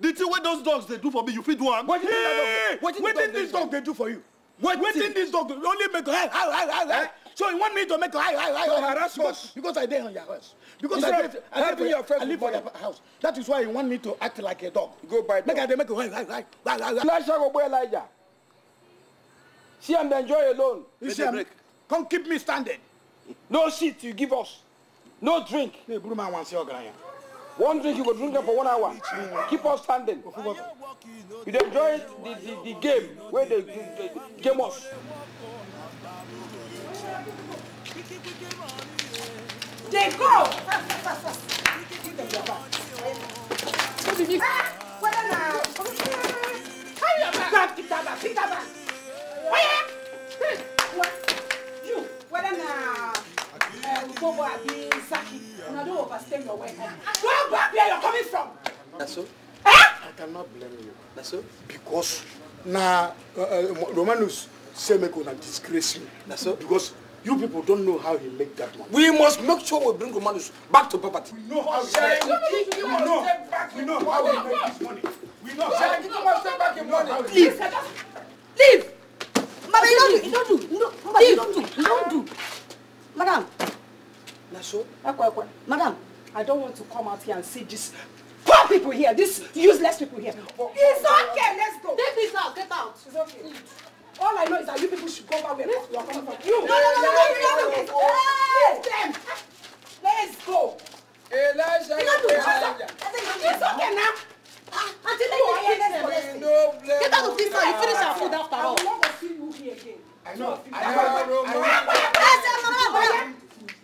the thing wey those dogs They do for me you feed one. What did yeah. dog wetin dog dey do for you. What did this dog only make hi hi hi hi so you want me to make hi hi hi hi harass because, because i dey on your house. because Instead i dey i dey for i live for your house that is why you want me to act like a dog. go buy dog make i make hi hi hi hi hi. elijah see am dey enjoy alone. you see am come keep me standing. no seat you give us no drink. ne buru ma wan se One drink you go drink for one hour. Keep on standing. You enjoy the the, the game wey dey game us. They go. Whether na you your bag keep that bag keep that bag. Oya. Hmm. You whether na. Bobo Abi Saki, and don't overstay your welcome. Where Bobo you're coming from? That's all. Eh? I cannot blame you. That's all Because now uh, uh say Romanus Semeko na disgrace you. That's all Because you people don't know how he make that money. We must make sure we bring Romanus back to property. We know how he make money. We know. We know how he make his money. We know. how I give him money? Leave. Leave. Madam, you don't do. You don't do. You don't do. You don't do. Madam. Lasho, madam, I don't want to come out here and see this poor people here, This useless people here. Oh, it's okay, let's go. Take this out, get out. It's okay. All I know is that you people should go back where you are coming from. You, no, no, no, no, no, no, no, no. Hey, them. Let's go. Elijah, Elijah. It's okay now. Until they no blame. Get out of this now. You finish our food after all. I want to see you here again. I know. I know. I know. I know. I know. I know.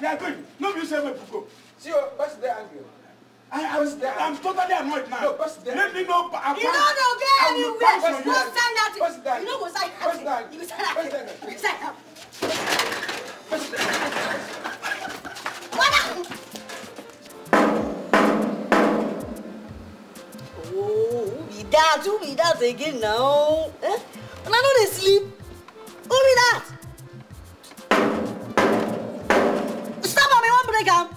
are going. no you say make you go. see o person dey angry. I, I was, I'm totally annoyed now. No, pass there. Let me know. you don't know, get anywhere. Pass no, stand out. that. You know, go side. Pass that. You side out. You side out. Pass What Oh, who be that? Who be that again now? Eh? And I know they sleep. Who be that? marry am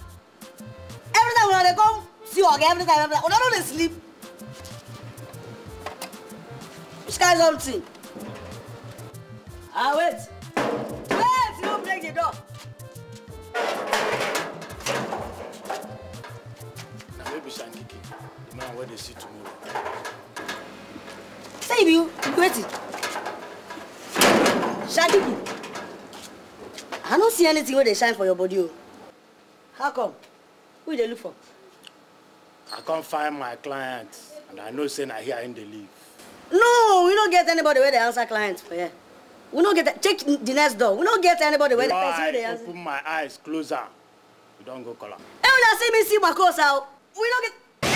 every time una dey come see oga every time every time una don't dey sleep which kind something ah wait wait you no break the door. Now baby shankiki the man where they see tomorrow. say you be you be wetin shankiki i don't see anything where they shine for your body Oh. how come who they dey look for i not find my client and i know saying I hear in they live no we don't get anybody where they answer clients for here we don't get check the next door we don't get anybody wey dey person wey answer open my eyes closer. We don't go color. am hey I see me see course out. Oh. we don't get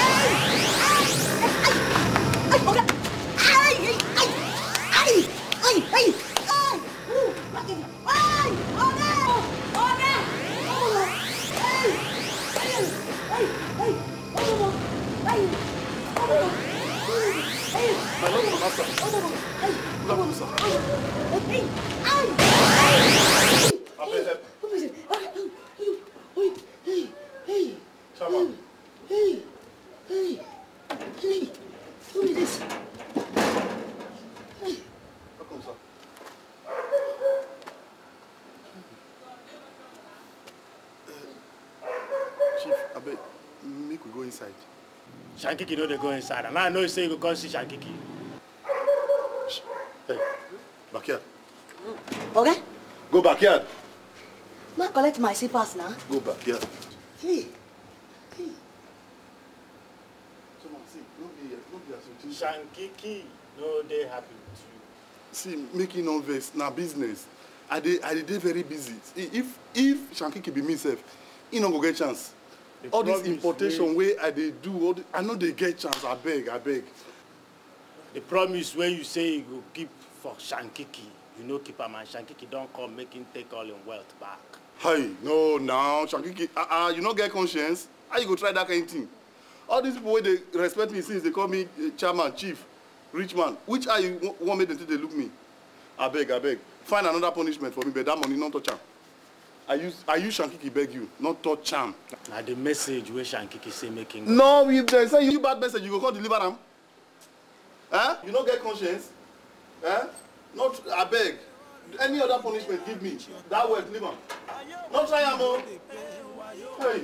hey hey hey hey hey hey hey hey hey. Hey! shankiki know they go inside and i know you say you go come see shankiki. hey backyard. oga. Okay? go backyard. ma collect my pass now. go backyard. Hey. Hey. shankiki no dey happy with you. see making no vex now business i did, i did very busy if if shankiki be myself, he no go get chance all this importation wey i dey do the, i no dey get chance abeg abeg. the promise wey you say you go keep for shankiki you no keep am and shankiki don come make him take all him wealth back. hey no now shankiki ah uh ah -uh, you no get conscience how you go try that kind of thing all these people wey dey respect me since they call me uh, chairman chief rich man which eye you wan make dem take dey look me abeg abeg find another punishment for me but that money no touch am. Are you? Are you Shankiki beg you, not touch am. Now the message where Shankiki say making. No, if dem send you bad message, you go call deliver am. Huh? Eh? You no get conscience? Huh? Eh? Not I beg. Any other punishment give me. That word, deliver. Not try am o. Oh. Hey.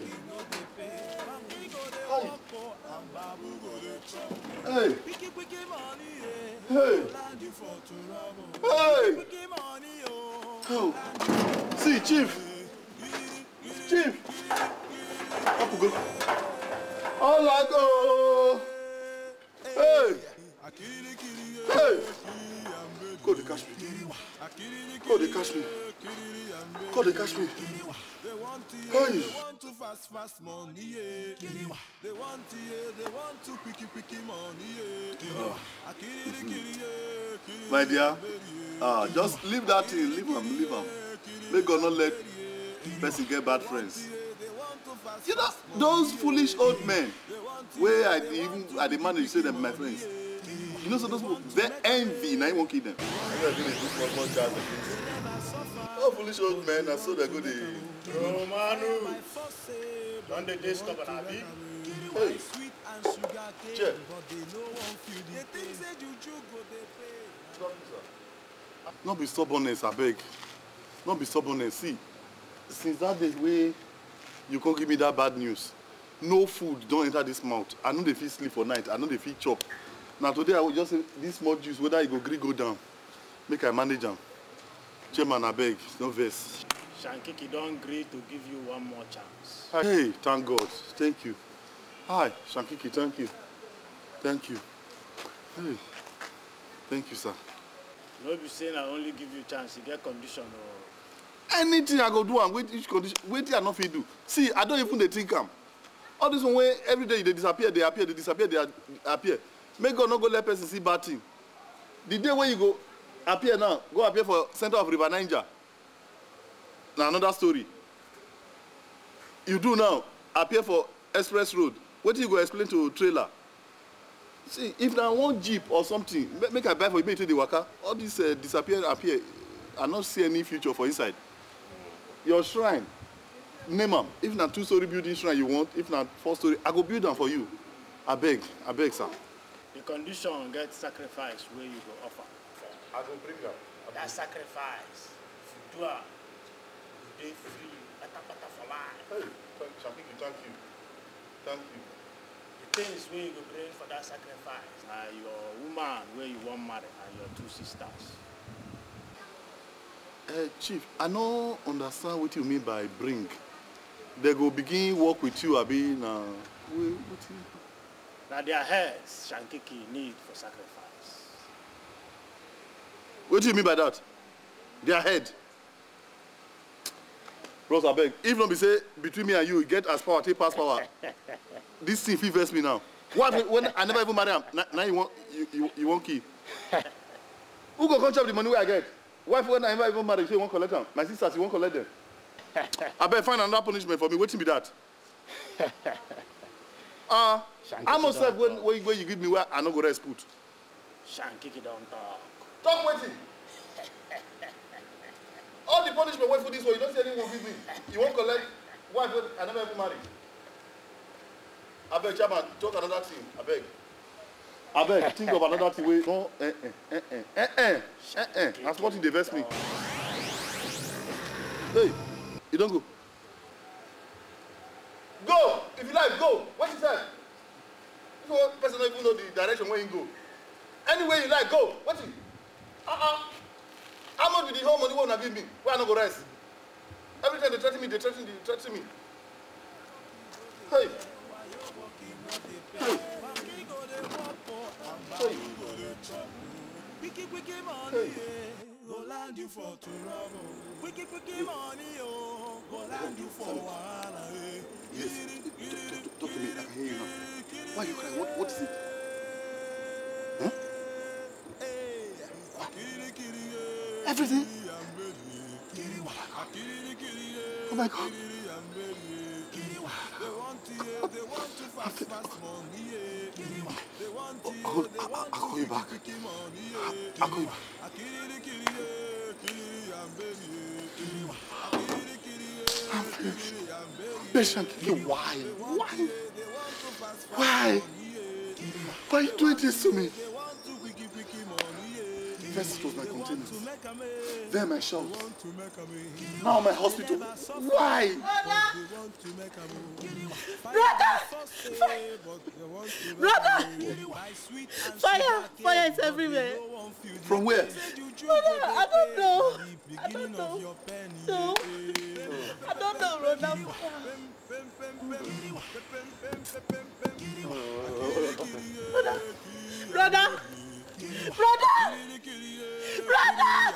Hey. Hey. Hey. Hey. Oh. See, Chief. Chief, up we go. All I go. Hey. Hey. Go dey catch me. Go dey catch me. Go dey catch me. Hey. fast fast money, yeah. They want yeah, they want to picky picky money, yeah. My dear, ah, uh, just leave that thing, leave them. leave them. Make God not let person get bad friends you know those foolish old men Where i dey even i dey manage say them my friends you know so those people their envy Now you wan kill dem. i foolish old men I saw dem go dey. romanu don dey dey stubborn abi. hey che. no be stubbornness I beg. Not be stubbornness see since that day wey you come give me that bad news no food don enter this mouth i no dey fit sleep for night i no dey fit chop na today i just say this small juice whether e go gree go down make i manage am chairman abeg no vex. shankiki don gree to give you one more chance. hey thank god thank you hi shankiki thank you thank you hey thank you sir. no be say na only give you chance e get condition o. Oh anything i go do and with each condition wetin i no fit do see i don't even dey think am all this one wey every day they disappear they appear they disappear they appear make god not go let person see bad thing the day when you go appear now go appear for center of river niger Now another story you do now appear for express road wetin you go explain to trailer see if na one jeep or something make i buy for you make you the worker? all this uh, disappear appear i no see any future for inside your shrine name am if na two story building shrine you want if na four story i go build am for you abeg abeg sir. the condition get sacrifice wey you go offer. i go bring am. that sacrifice if you do am you dey free patapata for life. hey thank you, thank you thank you. the things wey you go bring for that sacrifice na your woman wey you wan marry and your two sisters. Uh, Chief, I no understand what you mean by bring. They go begin work with you, Abi, now. Now their heads Shankiki need for sacrifice. What do you mean by that? Their head? Bros, beg. If not be say, between me and you, get as power, take pass power. [LAUGHS] this thing fit vex me now. What when I never even marry him? Now you want you, you, you want key. [LAUGHS] Who go come chop the money where I get? wife when i ever even married, she won't collect them. my sisters, she won't collect them. I abeg find another punishment for me What wetin be that [LAUGHS] ah how much sef when wey you give me wey i no go rest put. shankiki don talk. talk wetin [LAUGHS] all the punishment wey for this one. you don't see anyone give me you won't collect wife i never even marry beg, chairman talk another thing I beg abeg think of another thing wey no eh eh eh eh eh eh eh na small thing dey vex me hey you don go. go if you like go wait you sef this one person no even know the direction wey him go anywhere you like go wait you Uh ah how much be the whole money wey una give me wey i no go rest every time dey threa ten me dey threa ten dey threa ten me hey hey. Wicked, wicked money, go land you for trouble. Wicked, wicked money, oh, go you for wahala. Yes, talk, talk to me. I can hear you now. Why you crying? What, what is it? Huh? Everything? Oh my God. call you back. I'll call you back. I'm finished. why? Why? Why? Why you doing this to me? First it was my containers, then my shop, now my hospital. Why? Brother! Brother! Fire! Fire is everywhere. From where? Brother, I don't know. I don't know. No. I don't know, Ronald. Brother! Brother! Brother! Brother!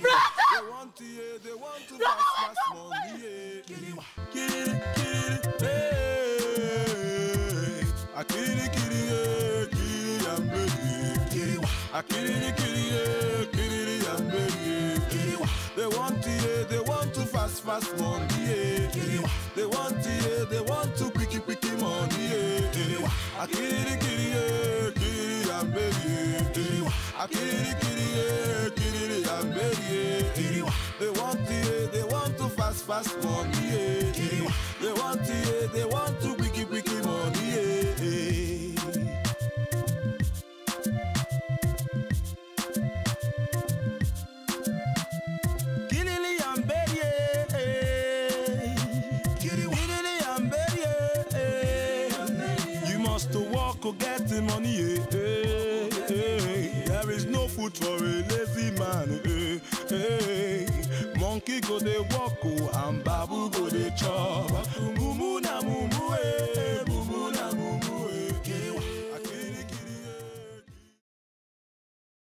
brother! They want to, they want to fast, fast money. They want to, they want to quicky, quicky money. Kiri kiri, kiri amberi. They want to, they want to fast fast money. They want to, they want to wiki wiki money. must to walk or get the money good for a lazy man hey, eh, eh monkey go dey walk oh, and babu go dey chop mumu na mumu eh